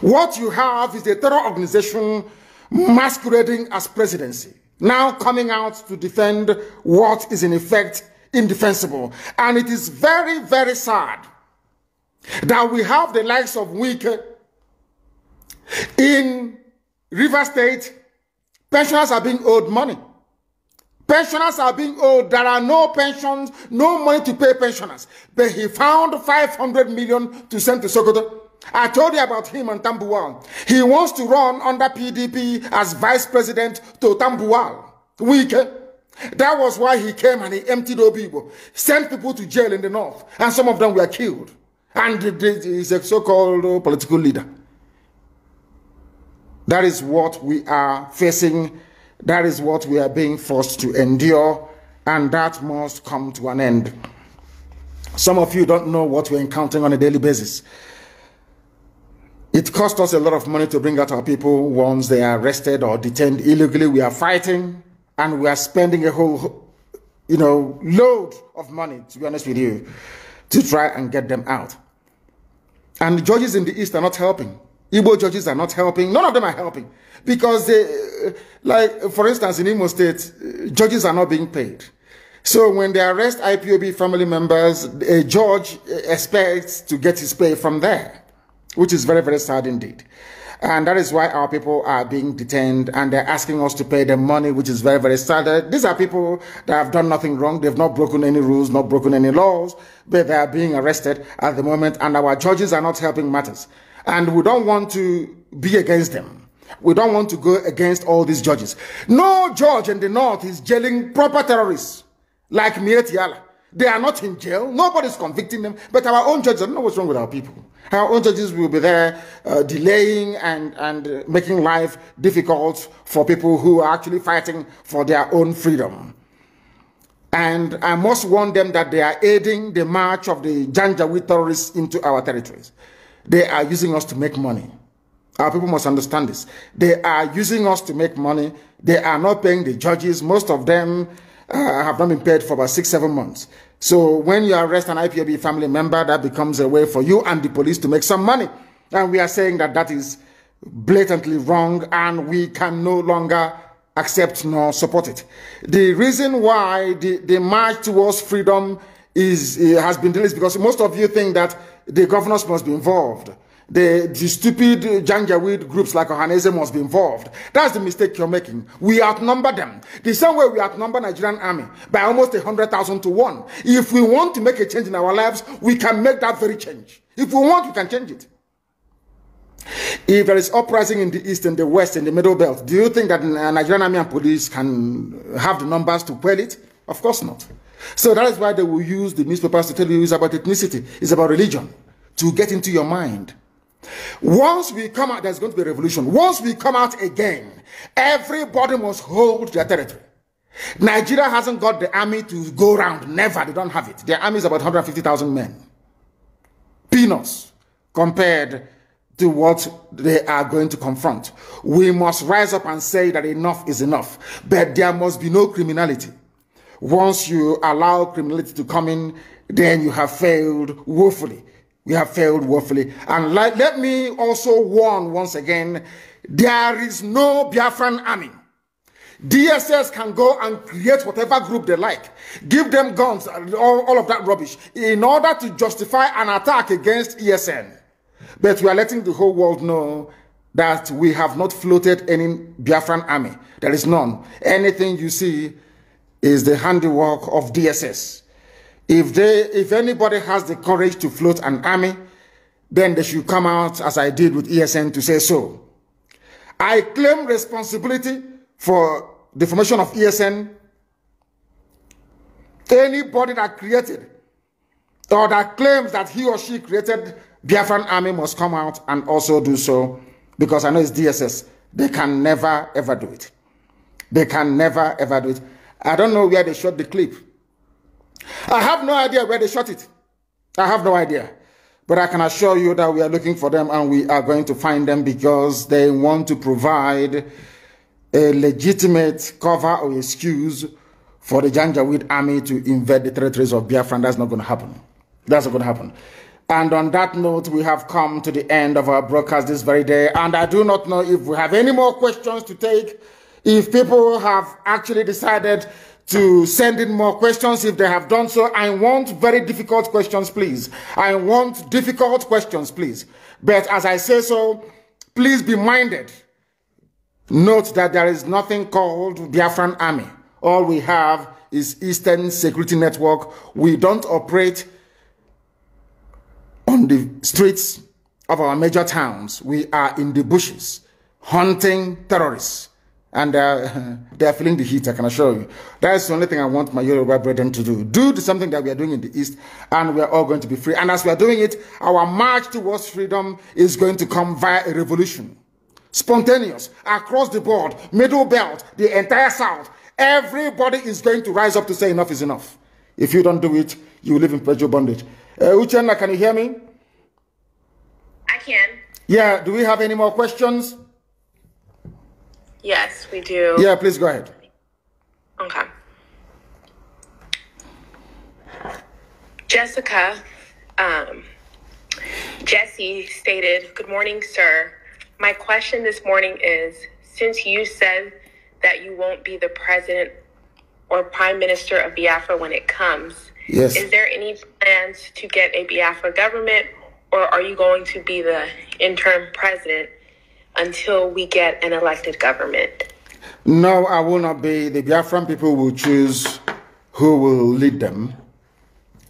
What you have is a terror organization masquerading as presidency, now coming out to defend what is in effect indefensible. And it is very, very sad that we have the likes of Wike in River State. Pensioners are being owed money. Pensioners are being owed. There are no pensions, no money to pay pensioners. But he found 500 million to send to Sokoto. I told you about him and Tambuwal. He wants to run under PDP as vice president to Tambuwal. Weak. That was why he came and he emptied people, sent people to jail in the north, and some of them were killed. And he's a so-called political leader. That is what we are facing that is what we are being forced to endure, and that must come to an end. Some of you don't know what we're encountering on a daily basis. It cost us a lot of money to bring out our people once they are arrested or detained illegally. We are fighting and we are spending a whole, you know, load of money, to be honest with you, to try and get them out. And the judges in the East are not helping. Igbo judges are not helping. None of them are helping because they, uh, like, for instance, in Imo State, uh, judges are not being paid. So when they arrest IPOB family members, a uh, judge expects to get his pay from there, which is very, very sad indeed. And that is why our people are being detained and they're asking us to pay them money, which is very, very sad. These are people that have done nothing wrong. They've not broken any rules, not broken any laws, but they are being arrested at the moment and our judges are not helping matters. And we don't want to be against them. We don't want to go against all these judges. No judge in the north is jailing proper terrorists like Mietiala. They are not in jail. Nobody's convicting them. But our own judges, I don't know what's wrong with our people. Our own judges will be there uh, delaying and, and uh, making life difficult for people who are actually fighting for their own freedom. And I must warn them that they are aiding the march of the Janjaweed terrorists into our territories. They are using us to make money. Our people must understand this. They are using us to make money. They are not paying the judges. Most of them uh, have not been paid for about six, seven months. So when you arrest an IPOB family member, that becomes a way for you and the police to make some money. And we are saying that that is blatantly wrong and we can no longer accept nor support it. The reason why the, the march towards freedom is, uh, has been delayed is because most of you think that the governors must be involved the, the stupid Janjaweed groups like Ohanese must be involved. That's the mistake you're making. We outnumber them. The same way we outnumber Nigerian army by almost 100,000 to 1. If we want to make a change in our lives, we can make that very change. If we want, we can change it. If there is uprising in the east and the west and the middle belt, do you think that uh, Nigerian army and police can have the numbers to quell it? Of course not. So that is why they will use the newspapers to tell you it's about ethnicity, it's about religion, to get into your mind. Once we come out, there's going to be a revolution. Once we come out again, everybody must hold their territory. Nigeria hasn't got the army to go round. Never. They don't have it. Their army is about 150,000 men. Peanuts compared to what they are going to confront. We must rise up and say that enough is enough. But there must be no criminality. Once you allow criminality to come in, then you have failed woefully we have failed woefully. And like, let me also warn once again there is no Biafran army. DSS can go and create whatever group they like, give them guns, all, all of that rubbish, in order to justify an attack against ESN. But we are letting the whole world know that we have not floated any Biafran army. There is none. Anything you see is the handiwork of DSS. If they, if anybody has the courage to float an army, then they should come out as I did with ESN to say so. I claim responsibility for the formation of ESN. Anybody that created or that claims that he or she created Biafran army must come out and also do so because I know it's DSS. They can never ever do it. They can never ever do it. I don't know where they shot the clip. I have no idea where they shot it. I have no idea. But I can assure you that we are looking for them and we are going to find them because they want to provide a legitimate cover or excuse for the Janjaweed army to invade the territories of Biafran. that's not going to happen. That's not going to happen. And on that note, we have come to the end of our broadcast this very day. And I do not know if we have any more questions to take, if people have actually decided to send in more questions if they have done so. I want very difficult questions, please. I want difficult questions, please. But as I say so, please be minded. Note that there is nothing called Biafran Army. All we have is Eastern Security Network. We don't operate on the streets of our major towns. We are in the bushes hunting terrorists. and uh, <laughs> they are feeling the heat, I can assure you. That's the only thing I want my Yoruba brethren to do. Do something that we are doing in the East, and we are all going to be free. And as we are doing it, our march towards freedom is going to come via a revolution. Spontaneous, across the board, middle belt, the entire South. Everybody is going to rise up to say enough is enough. If you don't do it, you live in perpetual bondage. Uh, Uchenna, can you hear me? I can. Yeah, do we have any more questions? Yes, we do. Yeah, please go ahead. Okay. Jessica, um, Jesse stated, Good morning, sir. My question this morning is since you said that you won't be the president or prime minister of Biafra when it comes, yes. is there any plans to get a Biafra government or are you going to be the interim president? until we get an elected government? No, I will not be. The Biafran people will choose who will lead them.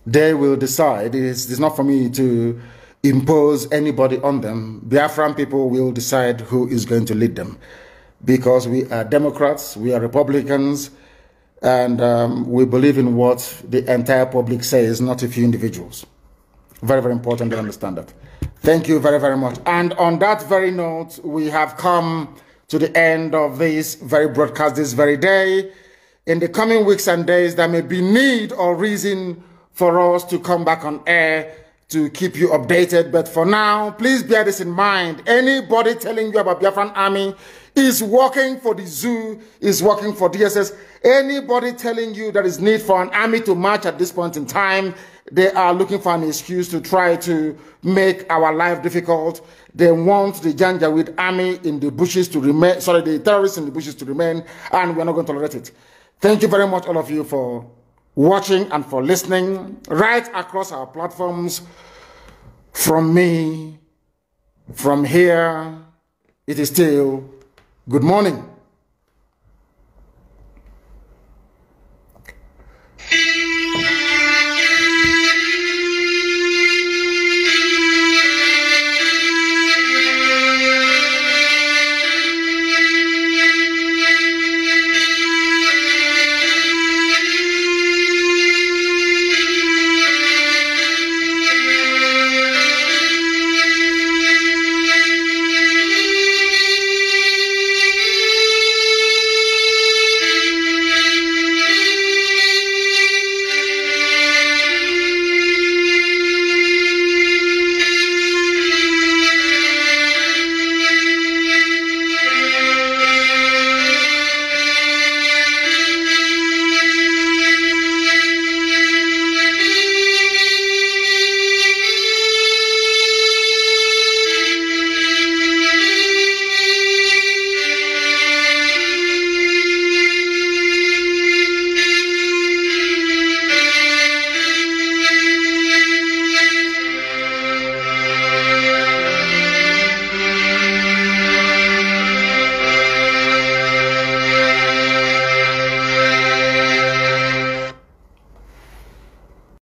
They will decide. It's, it's not for me to impose anybody on them. Biafran people will decide who is going to lead them because we are Democrats, we are Republicans, and um, we believe in what the entire public says, not a few individuals. Very, very important to understand that. Thank you very, very much. And on that very note, we have come to the end of this very broadcast this very day. In the coming weeks and days, there may be need or reason for us to come back on air to keep you updated. But for now, please bear this in mind. Anybody telling you about Biafran Army is working for the zoo, is working for DSS. Anybody telling you there is need for an army to march at this point in time they are looking for an excuse to try to make our life difficult. They want the Janjaweed army in the bushes to remain, sorry, the terrorists in the bushes to remain, and we're not going to tolerate it. Thank you very much, all of you, for watching and for listening right across our platforms. From me, from here, it is still good morning.